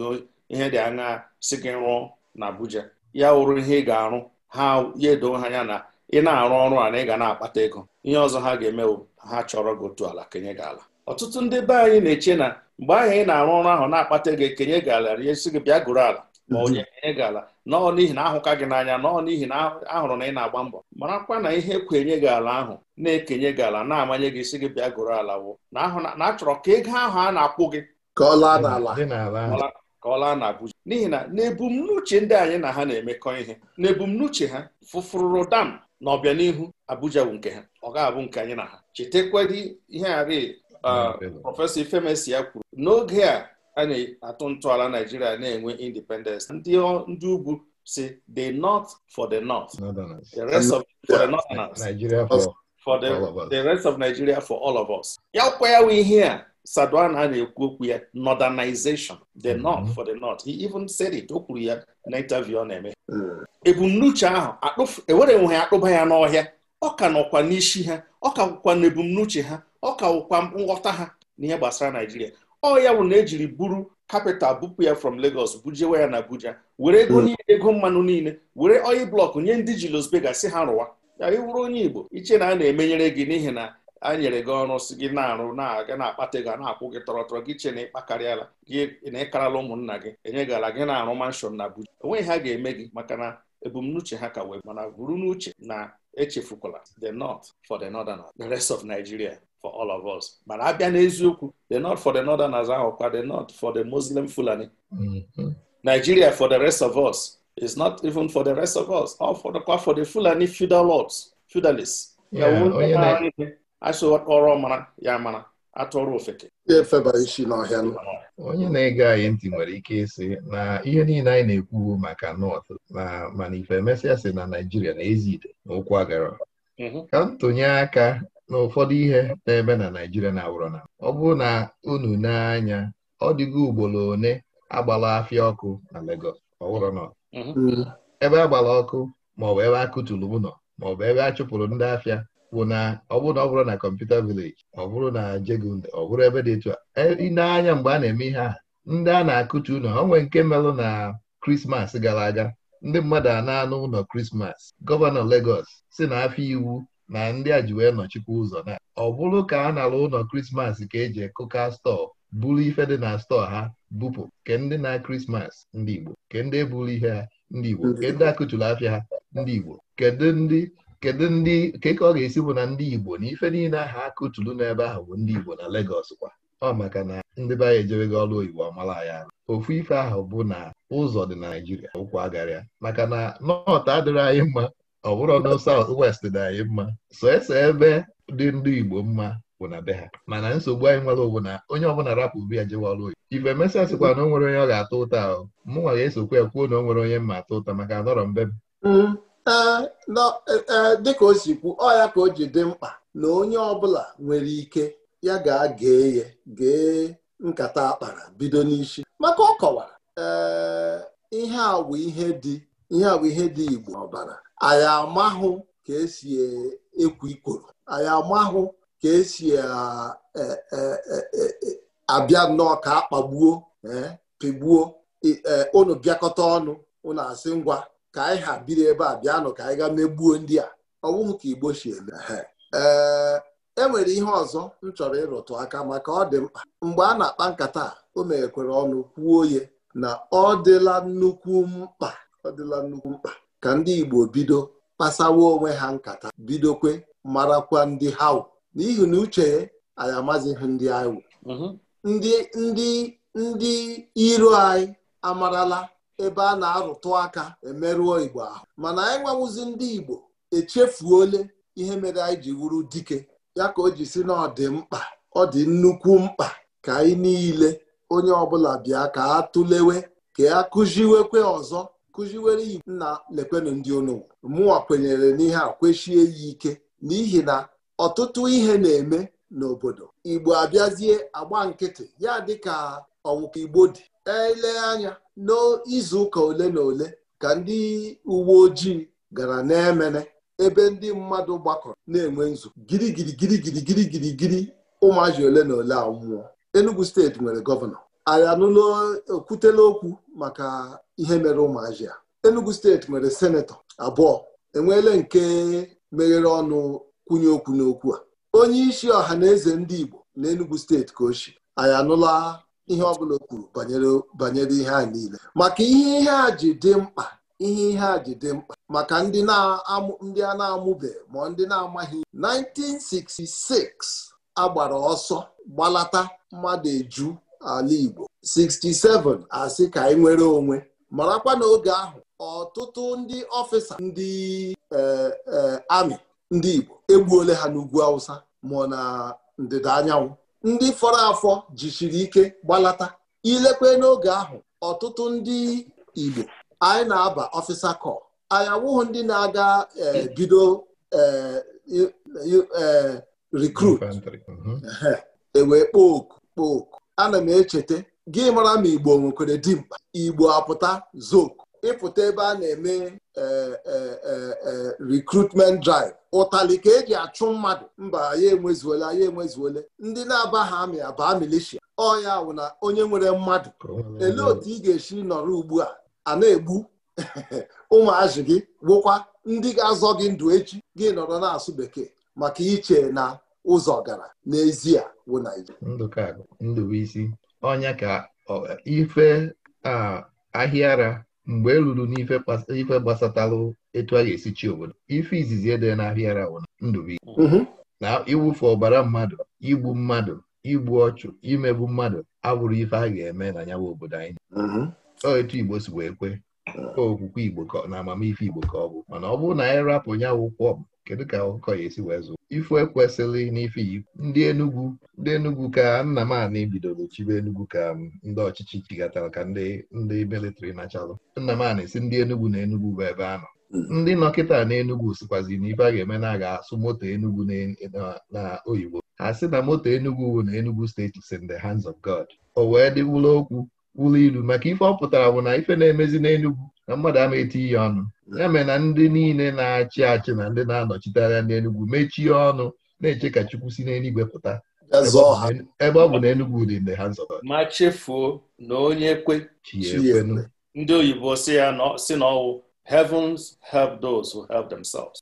ihe dị anya si gị rụọ na Abuja ya wụrụ ihe ị ga-arụ ha ya edo ha ya na ị na-arụ ọrụ a na ị ga na-akpata ego ihe ọzọ ha ga bụ ha chọrọ gị otu ala kenye gị ala ọtụtụ ndị be anyị na-eche na mgbe ahụ ị na-arụ ọrụ ahụ na-akpata ego ekenye gị ala si gị bịa gụrụ ala ma onye kenye gị ala nọọ n'ihi na ahụka gị n'anya nọọ n'ihi na ahụrụ na ị na-agba mbọ marakwa na ihe kwenye gị ala ahụ na-ekenye gị ala na-amanye gị isi gị bịa gụrụ ala wụ na achọrọ ka ego ahụ a na-akwụ gị ka ọ laa n'ala ka n'ihi na n'ebumnuche ndị anyị na ha na-emekọ ihe n'ebumnuche ha fụfụrụ dam na ọbịanihu Abuja bụ nke ha ọ ga-abụ nke anyị na ha chetekwadi ihe arị uh, prọfesọ Ifemesi ya kwuru n'oge a a na-atụ ntọala Naijiria na-enwe independence ndị ugwu si the north for the north the rest of for the northerners for the rest of Nigeria for all of us ya kwa ya ihe a a na-ekwu okwu ya northernization the mhm. north for the north he even said it o kwuru ya na interview ọ na-eme mm. ebumnuche ahụ ewere ya akpụba ya n'ọhịa ọ ka nọkwa n'isi ha ọ ka wụkwa na ebumnuche ha ọ ka wụkwa nghọta ha n'ihe gbasara Naijiria ọ ya bụ na ejiri buru kapital bupụ ya from Lagos bujewe ya na Abuja were ego mm. niile ego mmanụ niile were oil blọkụ nye ndị ji losbega si ha rụwa ya ịwụrụ onye Igbo iche na a na-emenyere gị n'ihi na a nyere gị ọrụ si gị na-arụ na-aga na-akpata ego na-akwụ gị tọrọtọrọ gị che na ịkpakarịala gị na ịkarala ụmụnna gị enyegala gị na-arụ manshọn na Abuja enweghị ha ga-eme gị maka na ebumnuche ha ka wee mana buru n'uche na echefukwala the north for the northerners the rest of Nigeria for all of us mana abịa n'eziokwu the north for the Northern as ahụ ahụkwa the north for the Muslim Fulani mm-hmm. Nigeria for the rest of us is not even for the rest of us all for the, for the Fulani feudal lords feudalists asị ọrọ mara ya mara atụrụ ofeke isi n'ọhịa onye na-ege anyị ntị nwere ike ịsị na ihe niile anyị na-ekwu maka nọt na mana ife emesịa na Naijiria na-ezi ide na ụkwụ agara mhm. ka ntụnye aka na ụfọdụ ihe na-eme na Naijiria na awụrọ na ọ bụrụ na unu n'anya ọ dịgo ugboro one agbala afịa ọkụ na legos ọwụrọ nọ mhm. mm. ebe agbala ọkụ maọbụ ebe a kụtụrụ maọbụ ebe a chụpụrụ ndị afịa bụ na ọ bụrụ na ọ bụrụ na kọmputa vileji ọ bụrụ na jegun ọ bụrụ ebe dị etu a ịna-anya e, mgbe a na-eme ihe a ndị a na-akụtu ụlọ o nwee nke melụ na krismas gara aga ndị mmadụ a na-anụ ụlọ krismas gọvanọ Legọs si na afọ iwu na ndị a ji wee nọchikwa ụzọ na ọ bụrụ ka a nara ụlọ krismas ka eji ekụka stọọ buru ife dị na stọọ ha bupụ ke ndị na krismas ndị Igbo ke ndị eburu ihe ha ndị Igbo ke ndị akụtụrụ afịa ha ndị Igbo kedu ndị kedu ndị keke ọ ga-esi bụ na ndị Igbo na ife niile ahụ akụtulu n'ebe ahụ bụ ndị Igbo na Legọs kwa ọ maka na ndị be anyị ejewego ọrụ oyibo amala ya ofu ife ahụ bụ na ụzọ dị na Naijiria ụkwụ agarịa maka na nọt adịrị anyị mma ọ bụrụ na saut west dị anyị mma so ese ebe dị ndị Igbo mma bụ na be ha mana nsogbu anyị nwere bụ na onye ọbụla rapụ bi ya jewe ọrụ oyibo ife mesịa sịkwa na o nwere onye ọ ga-atụ ụta ahụ mụnwa ga-esokwa ya kwuo na o nwere onye mma ụta maka anọrọ mbe m ee dịka o si kwu ọ ya ka o ji dị mkpa na onye ọbụla nwere ike ya ga gee ya gee nkata akpara bido n'isi maka ọ kọwara ihe awụ ihe dị ihe awụ ihe dị igbo ọbara anyị amahụ ka esi e, ekwu ikoro anyị amahụ ka esi e, e, abịa nnọọ ka akpagbuo pịgbuo unu bịakọta ọnụ unu asị ngwa ka anyị ha biri ebe a bịanụ ka anyị gaa megbuo ndị a ọ ka igbo si eme ee e nwere ihe ọzọ m chọrọ ịrụtụ aka maka ọ dị mkpa mgbe a na-akpa nkata o meghekwere ọnụ kwuo ye na ọ dịla nnukwu mkpa ọ dịla nnukwu mkpa ka ndị igbo bido kpasawa onwe ha nkata bidokwe marakwa ndị ha n'ihi na uche anyị amazighị ndị anyị mhm. ndị ndị ndị iro anyị amarala ebe a na-arụtụ aka emerụọ Igbo ahụ mana anyị nwewụzi ndị Igbo echefuole ihe mere anyị ji wuru dike ya ka o ji si na ọ dị mkpa ọ dị nnukwu mkpa ka anyị niile onye ọbụla bịa ka a tụlewe ka a kụziwekwe ọzọ kụziwere Igbo nna lekwenu ndị onowu mụnwa kwenyere n'ihe a kwechie ya ike n'ihi na ọtụtụ ihe na-eme n'obodo Igbo abịazie agba nkịtị ya dịka ọnwụka Igbo dị elee anya n'izu ụka ole na ole ka ndị uwe ojii gara n'emene ebe ndị mmadụ gbakọrọ na-enwe nzu. girigiri ụmụazụ ole na ole anwụọ Enugu steeti nwere gọvanọ anyị anụla okwutela okwu maka ihe mere ụmụazị a Enugu steeti nwere senetọ abụọ enweela nke meghere ọnụ kwụnye okwu n'okwu a onye isi ọha na eze ndị Igbo na Enugu steeti ka o si anyị anụla ihe ọbụla o kwuru banyere ihe a niile maka ihe ihe a ji dị mkpa ihe ihe a ji dị mkpa maka ndị a na-amụbe ma ndị na-amaghị 1966 agbara ọsọ gbalata mmadụ eju ala Igbo 67 asị ka anyị e nwere onwe marakwa n'oge ahụ ọtụtụ ndị ọfịsa ndị e, e, amị ndị Igbo egbuola ha n'ugwu Awụsa ma na ndịda anyanwụ ndị fọrọ afọ jichiri ike gbalata ilekwe n'oge ahụ ọtụtụ ndị Igbo anyị na-aba ọfịsa kọ anyị awụghị ndị na-aga e, bido e, e, rekrut mhm. ewee kpọọ oku kpọọ oku ana m echeta gị mara ma Igbo nwekwere dimkpa Igbo apụta zok ịpụta ebe a na-eme e, e, e, recruitment drive ụtali ka eji achụ mmadụ mba ya enwezuola ya enwezuole ndị na-aba ha amị abaa milishia ọya wụ na onye nwere mmadụ elee otu ị ga-esi nọrọ ugbu a a na-egbu ụmụazị gị gwụkwa ndị ga-azọ gị ndụ echi gị nọrọ na-asụ bekee maka iche na ụzọ gara n'ezie wụ Naijiria ndụbụisi ka ife ahịara mgbe e ruru n'ife gbasatalụ etu a ga-esi chi obodo ife izizi ede na-abịara ụna mm-hmm. na iwufe ọbara mmadụ igbu mmadụ igbu ọchụ imegbu mmadụ abụrụ ife a ga-eme na nyawa obodo anyị mm-hmm. ọ etu Igbo si wee kwe okwukwe Igbo na amamife Igbo ka ọ bụ mana ọ bụrụ na anyị rapụ nyawa ụkwụ kedu ka akụkọ ya esi wee zụ ifu ekwesịlị n'ife ndị Enugwu ndị Enugwu ka nna m anị bidoro chibe Enugwu ka um, ndị ọchịchị chigatara ka ndị ndị militri nachalụ nna m anị si ndị Enugwu na Enugwu bụ ebe a nọ hmm. ndị nọkịta na Enugwu sikwazi na a ga-eme na aga asụ moto Enugwu na oyibo ha sị na moto Enugwu na Enugwu steeti si in hands of God o wee dịwụla okwu wụlụ ilu maka ife ọ pụtara bụ na ife na-emezi n'Enugwu na mmadụ ama eti ihe ọnụ ya mere na ndị niile na-achị achị na ndị na-anọchite anya n'Enugwu mechie ọnụ na-eche ka Chukwu si n'eluigwe pụta ebe ọ bụ na Enugwu dị mgbe ha nzọba ma chefuo na onye kwe ndị oyibo si ya si n'ọwụ. heavens help those who help themselves.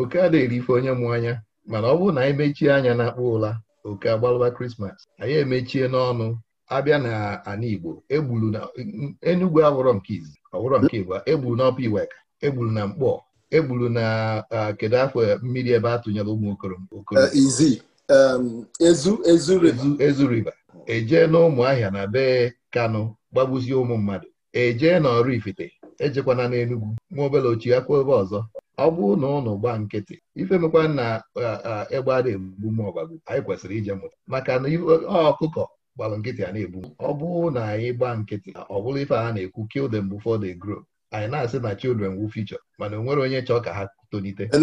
oke a ife onye mụ anya mana ọ bụrụ na anyị mechie anya na akpụ ụla oke agbalụba krismas anyị emechie n'ọnụ abịa na ana Igbo egburu na Enugu awụrọ nke izi ọwụrọ nke Igbo egburu n'ọpa Iweka egburu na Mkpọ egburu na kedu afọ mmiri ebe a tụnyere ụmụ okoro eh, ezu riba ejee e na ụmụahịa na be Kano gbagbuzie ụmụ mmadụ ejee na ọrụ ifite ejekwana n'Enugwu ma obele ochie akwa ebe ọzọ ọ bụrụ na ụnụ gbaa nkịtị ife mekwa na egbe a na-egbu m ọbagbu anyị kwesịrị ije mụta maka na ọkụkọ gbalụ nkịtị a na-egbu ọ bụrụ na anyị gbaa nkịtị ọ bụrụ ife a na-ekwu kill them before they grow anyị na-asị na children wu future mana onwere onye chọọ ka ha tolite e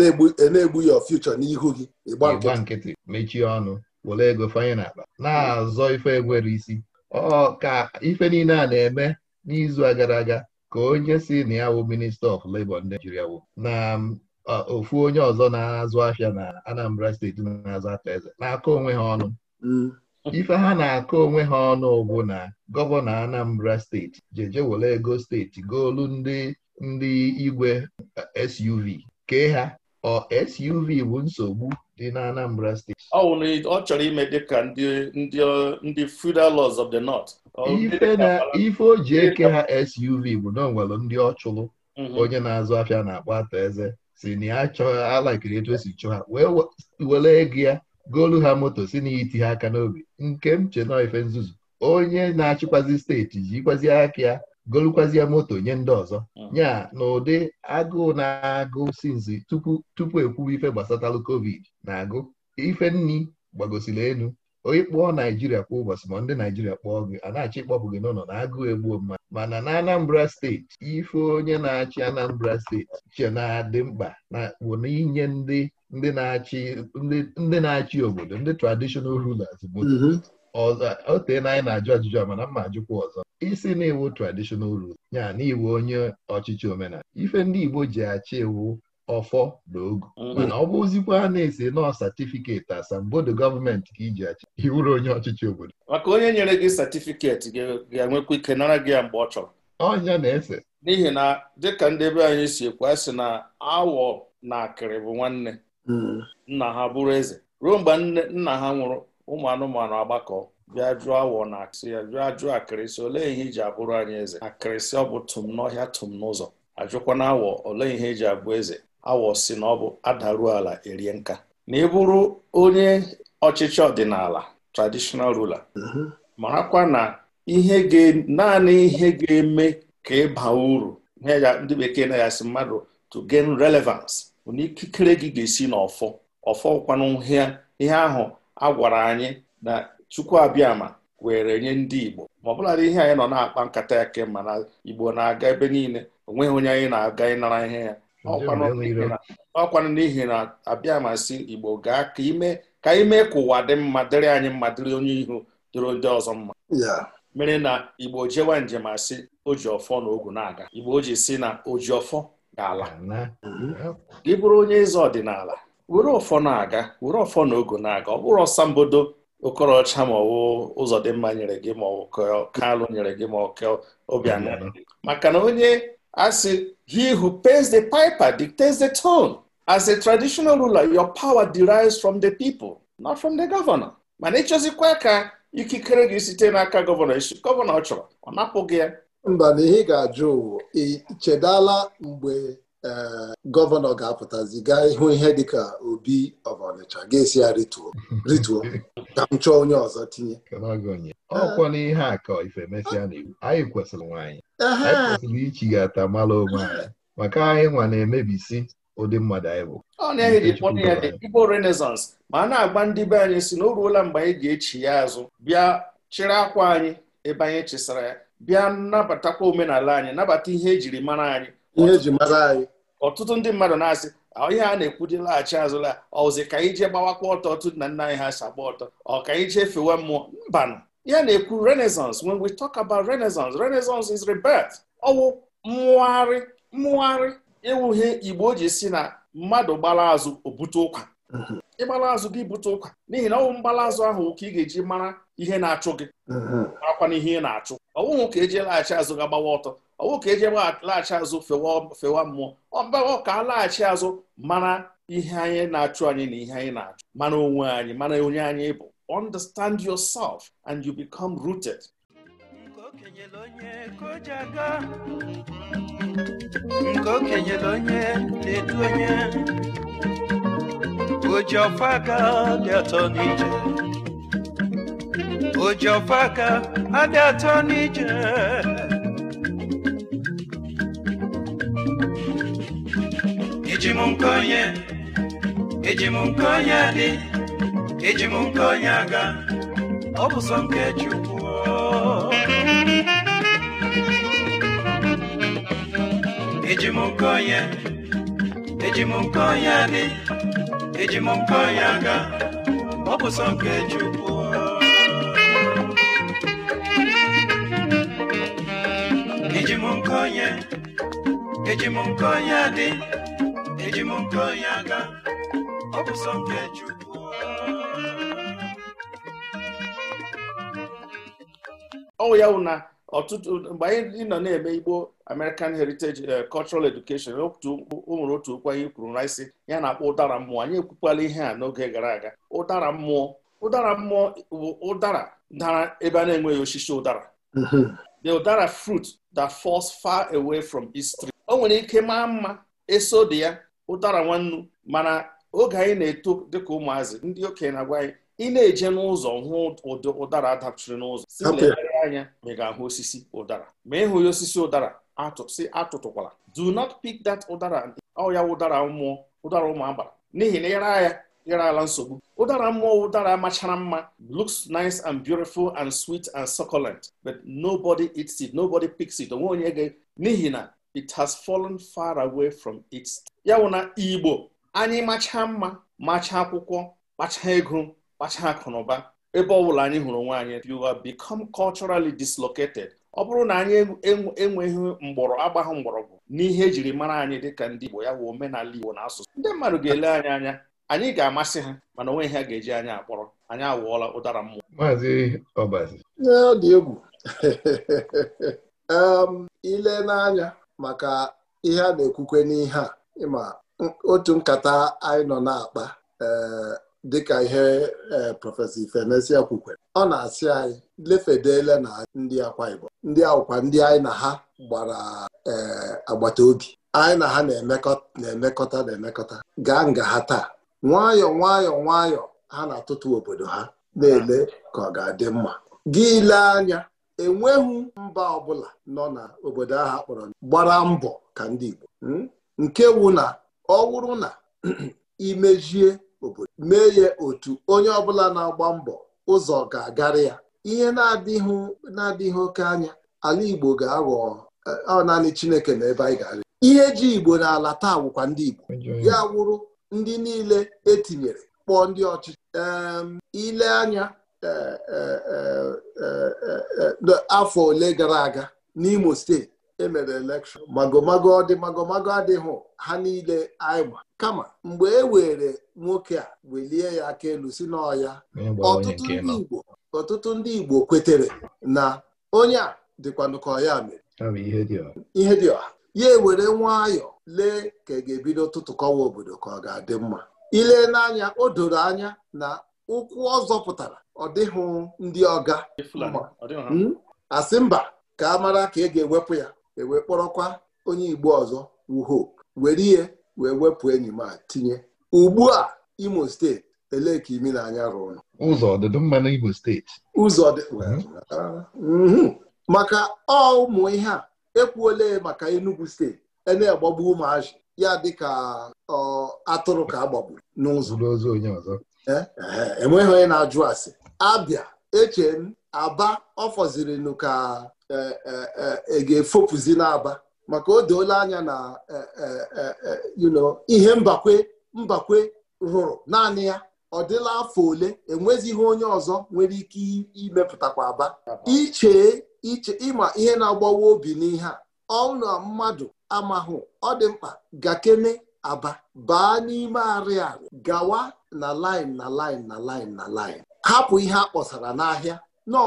na-egbu e ya future n'ihu gị gba nkịtị mechie ọnụ were ego fanye n'akpa na-azọ ife enwere isi ọ ka ife niile a na-eme n'izu gara aga ka onye si na ya wụ minista of Labour ndị Naịjirịa wụ na um, ofu onye ọzọ na-azụ ahịa na Anambra steeti na-azụ aka eze na-akọ onwe ha ọnụ mm. ife ha na-akọ onwe ha ọnụ ụgwụ na gọvanọ Anambra steeti jeje were ego steeti goolu ndị ndị igwe eh, SUV kee ha ọ SUV bụ nsogbu dị na Anambra steeti ọ wụ na ọ chọrọ ime dịka ndị feudal laws of the north ife na o ji eke ha SUV bụ na onwere ndị ọchụlụ. Mhm. onye na-azụ afịa na-akpọ atọ eze si na ya chọọ alakiri etu esi chụọ ha wee were ego ya goolu ha moto si na iti ha aka n'obi nke m che ife nzuzu onye na-achịkwazi steeti jikwazi aka ya golukwazie moto nye ndị ọzọ hmm. nya na ụdị agụụ na-agụ sinzi tupu tupu ekwuba ife gbasatalụ covid na-agụ ife nni gbagosiri elu onye kpọọ naijiria kwa ụbọchị ma ndị naijiria kpọọ gị a na-achọ ịkpọpụ gị n'ụlọ na agụụ egbuo mmadụ mana na anambra steeti ife onye na-achị anambra steeti che na-adị mkpa na bụ na inye ndị ndị na-achị obodo ndị traditional rulers bụ mm-hmm. o na anyị na-ajụ ajụjụ mana mma ajụkwa ọzọ isi na iwu traditional rul ya na iwu onye ọchịchị omenala ife ndị Igbo ji achị iwu ọfọ na ogu mm-hmm. mana ọ bụ a na-ese nọọ satifiketi asambodo gọọmenti ka iji achị iwuru onye ọchịchị obodo maka onye nyere gị satifiketi ga-enwekwa ike nara gị ya mgbe ọ chọrọ ọnya na-ese n'ihi na dịka ndị be anyị si ekwe sị na awọ na akịrị bụ nwanne nna ha bụrụ eze ruo mgbe nna ha nwụrụ ụmụ anụmanụ agbakọ bịa jụọ awọ na ya bịa jụọ akịrịsị olee ihe iji abụrụ anyị eze akịrịsị ọ bụ tụm n'ọhịa tụm n'ụzọ ajụkwa na awọ olee ihe eji abụ eze awọ si na ọ bụ adaruo ala erie nka na ịbụrụ onye ọchịchị ọdịnala traditional ruler marakwa na ihe naanị ihe ga-eme ka ịba uru ndị bekee na-asị mmadụ to gain relevance na ikikere gị ga-esi n'ọfọ ọfọkwanụ ihe ahụ a gwara anyị na Chukwu abịama were nye ndị Igbo ma ọ bụladị ihe anyị nọ na-akpa nkata ya kemgbe na Igbo na-aga ebe niile onweghị onye anyị na-aga ịnara ihe ya ọkwanụ n'ihi na abịama si Igbo gaa ka ime ka ime ka ụwa dị mma dịrị anyị mma dịrị onye ihu dịrị ndị ọzọ mma mere na Igbo jewa njem asị o ji ọfọ na ogu na-aga Igbo o ji si na o ji ọfọ ala gị mhm. bụrụ onye eze ọdịnala were ọfọ na-aga were ọfọ na ogo na-aga ọ bụrụ ọsambodo okorocha ma ọwụ ụzọ dị mma nyere gị ma ọ kalụ nyere gị ma ọ obianọ maka na onye asị he who pays the piper dictates the tone as a traditional ruler your power derives from the people not from the governor mana ịchọzikwa ka ikikere gị site n'aka gọvanọ gọvanọ ọ chọrọ ọ napụghị ya mba na ihe ga-ajụ ụwa ichedala mgbe e, gọvanọ ga-apụtazi gaa ihu ihe dịka obi of ga-esi ya rituo rituo ka m chọọ onye ọzọ tinye ọkwa na ihe a ka ife mesịa na iwu anyị kwesịrị nwaanyị anyị kwesịrị ichighata mara onwe anyị maka anyị nwa na-emebisi ụdị mmadụ anyị bụ ọ na-eji ya dị Igbo Renaissance ma a na-agba ndị be anyị si na o ruola mgbe anyị ga-echi ya azụ bịa chịrị akwa anyị ebe anyị chisara ya bịa nabatakwa omenala anyị nabata ihe ejiri mara anyị ihe e mara anyị ọtụtụ ndị mmadụ na-asị ihe a na-ekwu dị laghachi azụla ọzi ka anyị jee gbawakwa ọtọ otu na nna anyị ha si agba ọtọ ọ ka ije fewe mmụọ mbanụ ya na-ekwu renaissance when we talk about renaissance renaissance is rebirth ọwụ mmụgharị mmụgharị ewughie igbo ji si na mmadụ gbara azụ obute ụkwa mhm. ịgbala azụ gị bute ụkwa n'ihi na ọwụ mgbala azụ ahụ ka ị ga-eji mara ihe na-achụ gị mhm. akwa na ihe ị na-achụ ọnwụhụ ka eji laghachi azụ ga gbawa ọtọ ọnwụ ka eji laghachi azụ fewa mmụọ ọbawa ka a laghachi azụ mara ihe anyị na-achụ anyị na ihe anyị na-achụ mana onwe anyị mana onye anyị bụ understand yourself and you become rooted nke okenyere onye na-edu onye oji aka dị atọ n'ije ojiọfaka adị atọ n'ije eji m onye eji m onye dị eji m onye aga ọ bụ sọ nke Chukwu eji m onye eji m onye dị eji m onye aga ọ bụ sọ nke Chukwu nkonye eji m dị eji m aga ọ nke Chukwu ọwụ ya wụ na ọtụtụ mgbe anyị nọ na-eme Igbo American Heritage eh, Cultural Education o nwere otu okwu anyị kwuru na isi ya na-akpọ ụdara mmụọ anyị ekwukwala ihe a n'oge gara aga ụdara mmụọ ụdara mmụọ bụ ụdara dara ebe a na-enweghị osisi ụdara the udara fruit that falls far away from its o nwere ike maa mma eso dị ya ụdara nwannu mana oge anyị na-eto dịka ụmụazị ndị okenye na-agwa anyị ị na-eje n'ụzọ hụ ụdara dapchiri n'ụzọ si legharị anya ma ị ga-ahụ osisi ụdara ma ị ya osisi ụdara si atụtụkwala do not pick that ụdara ọ ya ụdara mmụọ ụdara ụmụ agbara n'ihi na ịra ya nyere ala nsogbu ụdara mmụọ ụdara machara mma looks nice and beautiful and sweet and succulent but nobody eats it nobody picks it onwe onye ga n'ihi na it has fallen far away from its ya wụ na igbo anyị machaa mma macha akwụkwọ kpacha ego kpacha akụnụba ebe ọ bụla anyị hụrụ nwaanyị. you have become culturally dislocated ọ bụrụ na anyị enweghị mgbọrọ agbaghị mgbọrọgwụ n'ihe ejiri mara anyị dịka ndị Igbo ya wụ omenala Igbo na asụsụ ndị mmadụ ga-ele anyị anya anyị ga-amasị ha mana onwe ihe ga-eji anyị akpọrọ anyị awụọla ụdara mmụọ maazị ọbazi ọ dị egwu ile n'anya maka ihe a na-ekwukwe n'ihe a ịma otu nkata anyị nọ na-akpa eh, dịka ihe eh, prọfesọ Ifenesia kwukwe ọ na-asị anyị lefedele na ndị akwa Igbo ndị akwụkwa ndị anyị na ha gbara eh, agbata obi anyị na ha na-emekọta na-emekọta gaa nga ha taa nwayọ nwayọ nwayọ ha na-atụtụ obodo ha na-ele ka ọ ga-adị mma gị lee anya enweghị mba ọbụla nọ na obodo ahụ akpọrọ gbara mbọ ka ndị Igbo hmm? nke wụ na ọ wụrụ na imejie obodo mee ya otu onye ọbụla na-agba mbọ ụzọ ga-agarị ya ihe na-adịghị na-adịghị oke anya ala Igbo ga-aghọ eh, ọ naanị Chineke na ebe anyị ga-arị ihe ji Igbo na-ala taa wụkwa ndị Igbo ya wụrụ ndị niile etinyere kpọọ ndị ọchịchị ile anya e, e, e, afọ ole gara aga n'Imo steeti emere elekshọn magomago ọdị magomago adịghị ha niile anyị kama mgbe e were nwoke a welie ya aka elu si n'ọya ọtụtụ ndị Igbo ọtụtụ ndị Igbo kwetere na onye a dịkwanụ ka ọya mere ihe dị ọha ya ewere nwayọọ lee ka ị e ga-ebido kọwa obodo ka ọ ga-adị mma ile n'anya o doro anya na ụkwụ ọ zọpụtara ọ dịghị ndị ọga asị hmm? mba ka a mara ka ị e ga-ewepụ ya ewe kpọrọkwa onye Igbo ọzọ wuho were ihe wee wepụ enyi ma tinye ugbu a Imo steeti elee ka imi na-anya rụrụ ụzọ ọdịdị mma n'Imo steeti ụzọ hmm? Uh, hmm. maka ọ ụmụ ihe a ekwuole maka Enugu steeti na-agbagbu ụmụazị ya dịka atụrụ ka agbagburu n'ụzọ ozu onye ọzọ eh, eh, eh, enweghị onye na-ajụ asị abịa eche m aba ọ fọzirinụ ka e ga-efopụzi n'aba maka o doola anya na ihe mbakwe mbakwe rụrụ naanị ya ọ dịla afọ ole enwezighị onye ọzọ nwere ike imepụtakwa aba iche iche ịma ihe na-agbawa obi n'ihe a ọnụ mmadụ amahụ ọ dị mkpa gakene aba baa n'ime ari-arị gawa na line na line na line na line hapụ ihe a kpọsara n'ahịa nọ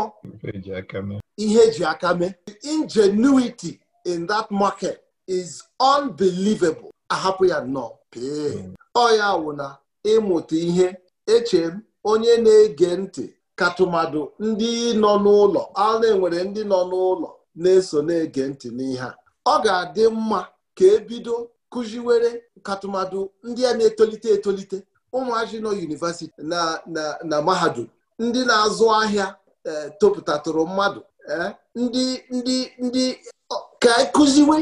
ihe eji aka mee ingenuity in that market is unbelievable ahapụ ya nọ. pee ọ ya wụ na ịmụta ihe eche m onye na-ege ntị katụmadụ ndị nọ n'ụlọ a enwere ndị nọ n'ụlọ na-eso na-ege ntị n'ihe a ọ ga-adị mma ka ebido kụziwere katụmadụ ndị a na-etolite etolite ụmụazị nọ yunivasiti na na mahadum ndị na-azụ ahịa e, topụtatụrụ mmadụ e, ndị ndị ndị ka e kụziwe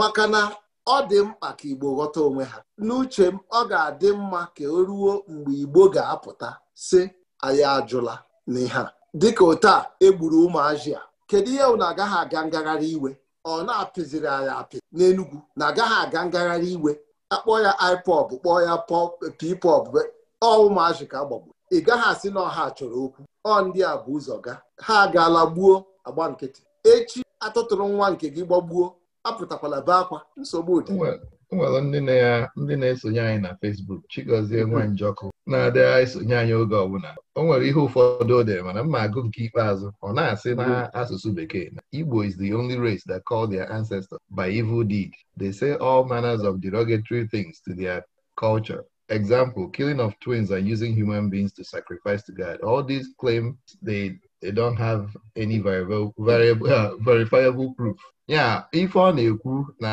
maka na ọ dị mkpa ka Igbo ghọta onwe ha n'uche m ọ ga-adị mma ka o ruo mgbe Igbo ga-apụta si anyị ajụla n'ihe a dịka ụta a egburu ụmụazị a kedu ihe na agaghị aga ngagharị iwe ọ na-apịziri anyị apị n'Enugwu na agaghị aga ngagharị iwe akpọ ya IPOB kpọọ ya PPOB ọ ụmụazị ka ị gaghị asị na ọha chọrọ okwu ọ ndị a bụ ụzọ ga ha agaala gbuo agba nkịtị echi atụtụrụ nwa nke gị gbagbuo apụtakwala be akwa nsogbu dị nwere ndị na-esonye anyị na Facebook Chigozie Nwanjọkụ na-adịghị esonye anyị oge ọbụla o nwere ihe ụfọdụ o dere mana mma agụ nke ikpeazụ ọ na-asị na asụsụ bekee na Igbo is the only race that called their ancestors by evil deed. They say all manners of derogatory things to their culture. Example, killing of twins and using human beings to sacrifice to God. All these claims they they don't have any uh, verifiable proof ya ife ọ na-ekwu na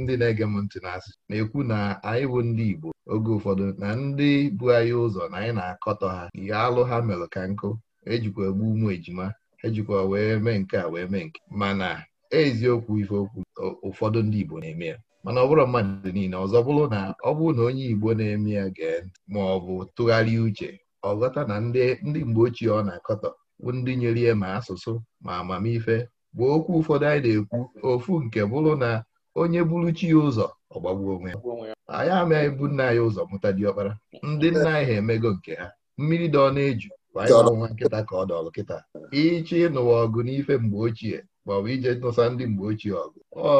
ndị na-ege m ntị na-asị na-ekwu na anyị bụ ndị Igbo oge ụfọdụ na ndị bụ anyị ụzọ na anyị na-akọtọ ha ihe alụ ha mere ka nkụ ejikwa egbu ụmụ ejima ejikwa wee mee nke a wee mee nke mana eziokwu ife okwu ụfọdụ ndị Igbo na-eme ya mana ọ bụrụ mmadụ niile ọzọ bụrụ na ọ bụrụ na onye Igbo na-eme ya gee ntị ma ọ bụ tụgharịa uche ọ ghọta na ndị mgbe ochie ọ na-akọtọ ndị nyere ihe ma asụsụ ma amamife bụ okwu ụfọdụ anyị na-ekwu ofu nke bụrụ na onye bụrụ chi ya ụzọ ọgbagbuo onwe ya anyị amaghị bụ nna anyị ụzọ mụta ọkpara ndị nna anyị ha emego nke ha mmiri dọ na-eju nwa nkịta ka ọ dọrọ kịta ịchọ ịnụwa ọgụ n'ife mgbe ochie maọbụ ije nụsa ndị mgbe ochie ọgụ ọ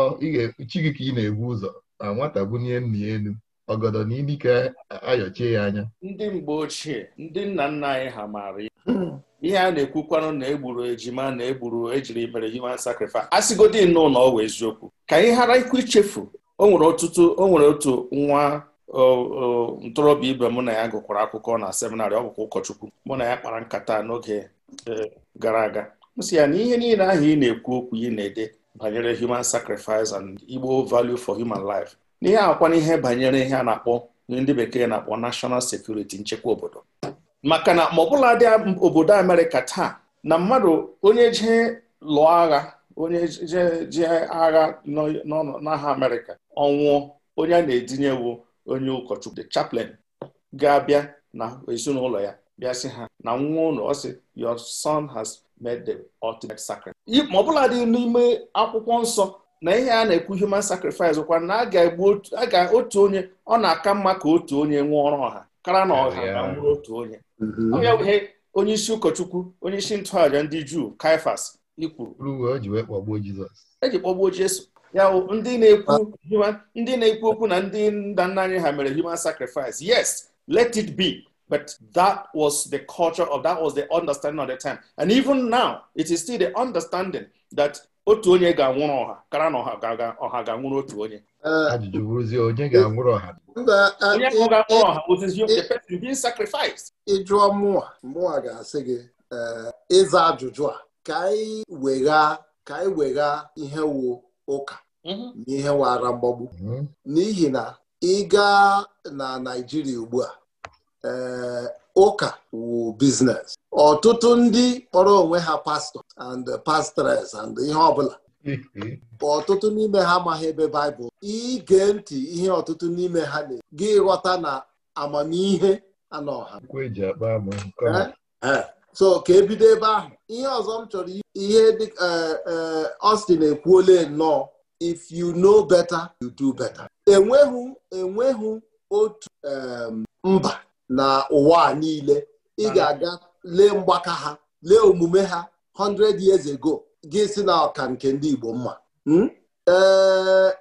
chi gị ka ị na egbu ụzọ na nwata bunye nna ya elu ọgọdọ na idike ayọchie ya anya ndị mgbe ochie ndị nna nna anyị ha maara ihe a na-ekwukwanụ na egburu ejima na egburu ejiri mere human sacrifice asịgodi nnọọ na ọ eziokwu ka anyị ghara ikwu ichefu o nwere ọtụtụ o nwere otu nwa ntorobịa ibe mụ na ya gụkwara akwụkwọ na seminarị ọ bụkwa ụkọchukwu mụ na ya kpara nkata n'oge e, gara aga m ya na ihe niile ahụ ị na-ekwu okwu ị na-ede banyere human sacrifice and Igbo value for human life n'ihe akwa n'ihe banyere ihe a na-akpọ ndị bekee na-akpọ national security nchekwa obodo maka na ma ọbụla dị obodo Amerịka taa na mmadụ onye jee lụọ agha onye jee agha n'agha Amerịka ọnwụọ onye a na-edinyewu onye ụkọchukwu the chaplain ga-abịa na ezinụlọ ya bịa ha na nwa ụlọ ọsị your son has made the ultimate sacrifice. ma ọ dị n'ime akwụkwọ nsọ na ihe a na-ekwu human sacrifice kwa na a ga otu onye ọ na-aka mma ka otu onye nwụọ ọrụ ọha kara na ọha nwụrụ otu onye onye mm-hmm. wee onye isi ụkọchukwu onye isi ntụaja ndị juu kaifas ikwuru eji e kpọgbuo jesu ya ndị na-ekwu ndị na-ekwu okwu na ndị nna nna anyị ha mere human sacrifice yes let it be but that was the culture of that was the understanding of the time and even now it is still the understanding that otu onye ga-anwụrụ ọha kara na ọha ga-anwụrụ ọha ga otu onye eh, ajụjụ bụrụzie onye ga-anwụrụ ọha eh, onye eh, ga-anwụrụ ọha ozizi the person being sacrificed ịjụọ mụwa mụwa ga-asị gị ịza ajụjụ a ka anyị wegha ka anyị wegha ihe wu ụka mhm. na ihe wara mgbagbu mhm. n'ihi na ị gaa na Naịjirịa ugbu a ụka wu biznes ọtụtụ ndị kpọrọ onwe ha pastọ and pastores and ihe ọbụla mm-hmm. ọtụtụ n'ime ha amaghị ebe baịbụl ige ntị ihe ọtụtụ n'ime ha na gị ghọta na amamihe anọ ha e eh, eh. so ka ebido ebe ahụ ihe ọzọ m chọrọ ihe dị eh, Austin ekwuole nnọọ if you know better you do better enweghị enweghị otu mba na ụwa niile ị ga-aga lee mgbaka ha lee omume ha 100 years ago gị si na ọka nke ndị Igbo mma hmm? ee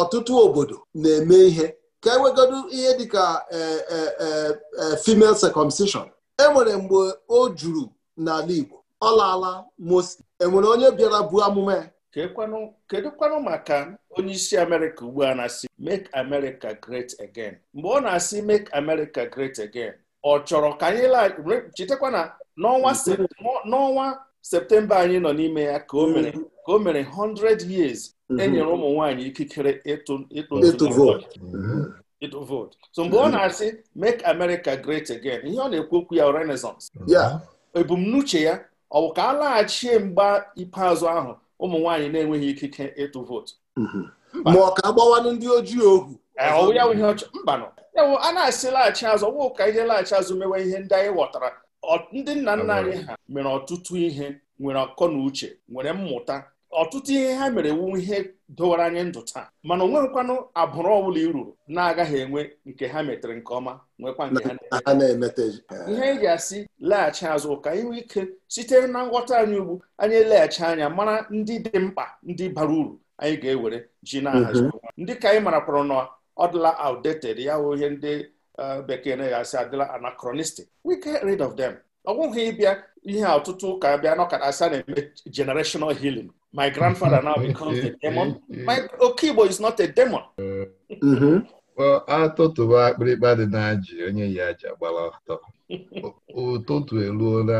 ọtụtụ obodo na-eme ihe ka ewegodo ihe dịka e, e, e, female circumcision nwere mgbe o juru n'ala Igbo ọ laala enwere onye bịara buo amụma ya kedụkwanụ maka onye isi amerịka ugbu a na-asị make america great again mgbe ọ na-asị make america great again ọ chọrọ ka anyị chetakwa na n'ọnwa septemba anyị nọ n'ime ya ka o mere ka o mere 100 years enyere mhm. ụmụ nwanyị ikikere mhm. ịtụ vote so mgbe ọ na-asị make america great again ihe ọ na-ekwu okwu ya renaissance ebumnuche ya ọ bụ ka a laghachie mgba ikpeazụ ahụ ụmụ nwaanyị na-enweghị ikike ịtụ vootu mhm. ma ọ ka agbawanụ ndị ojii ohu e, ya mbanụ a na-asị laghachi azụ ọgwụ ka ihe laghachi azụ mewe ihe ndị anyị ghọtara ndị nna nna anyị ha mere ọtụtụ ihe nwere ọkọ na uche nwere mmụta ọtụtụ ihe ha mere wu ihe dowara anyị ndụ taa mana onwe nkwanụ abụrụ ọbụla i ruru na-agaghị enwe nke ha metere nke ọma nwekwa ha na eh, ihe ị ga-asị laghachi azụ ka inwe ike site na nghọta anyị ugbu anyị eleghachi anya mara ndị dị mkpa ndị bara uru anyị ga-ewere ji na-ahazi mhm. ndị ka anyị marakwara na ọ dịla outdated ya hụ ihe ndị eh, bekee na-asị adịla anachronistic we rid of them ọ bụghị ịbịa ihe ọtụtụ ụka bịa n'ọkara asị a na-eme generational healing My grandfather now becomes a demon. My Okigbo is not a demon. atụtụba akpịrịkpa dị na ji onye yi aja gbara ọtọ ụtụtụ eruola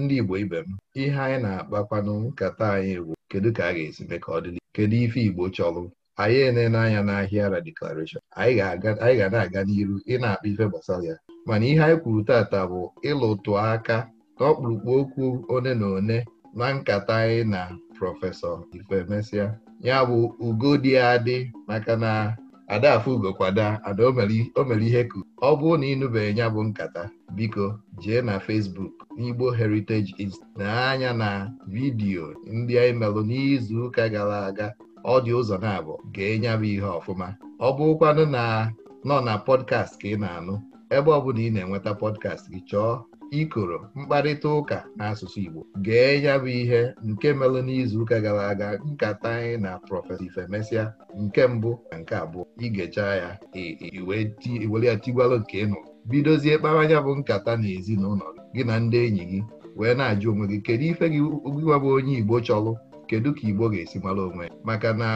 ndị Igbo ibe m ihe anyị na-akpakwanụ nkata anyị bụ kedu ka a ga-esi mee ka ọ kedu ife Igbo chọrọ anyị enene anya n'ahịa ra anyị ga na-aga n'iru ị na-akpa ife gbasara ya mana ihe anyị kwuru tata bụ ịlụtụ aka n'ọkpụrụkpụ okwu one na one na nkata anyị na prọfesọ Ifemesia ya bụ ugo dị adị maka na adafu ugokwada ada o mere ihe ku ọ bụrụ na ịnụbeghị ya bụ nkata biko jee na Facebook n'Igbo Heritage Institute na-anya na vidiyo ndị anyị melụ n'izu ụka gara aga ọ dị ụzọ na-abụ gee nyabụ bụ ihe ọfụma ọ bụrụkwanụ na nọ na pọdkast ka ị na-anụ ebe ọ bụla ị na-enweta podcast gị chọọ ikoro mkparịta ụka n'asụsụ Igbo gee ya bụ ihe nke n'izu ụka gara aga nkata anyị na prọfesọ Ifemesia nke mbụ na nke abụọ igechaa ya iwere ya tigwalụ nke ịnụ bidozie kpara anya bụ nkata na ezinụlọ gị na ndị enyi gị wee na-ajụ onwe gị kedu ife gị gịwa bụ onye Igbo chọlụ, kedu ka Igbo ga-esi mara onwe ya maka na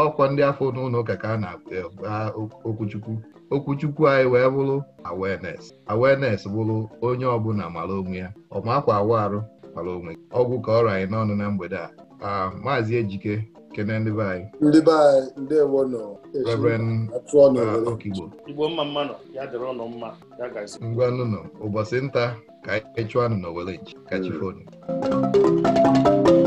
ọkwa ndị afọ n'ụlọ ụka ka a na-agba e, okwuchukwu okwuchukwu anyị wee bụrụ awareness awareness bụrụ onye ọbụla mara onwe ya ọmakwa awa arụ mara onwe ọgwụ ka ọrụ anyị n'ọnụ na mgbede a maazị ejike kene ndị be anyị ndị be anyị nọ ụbọchị nta ka anyị chụọ anụ na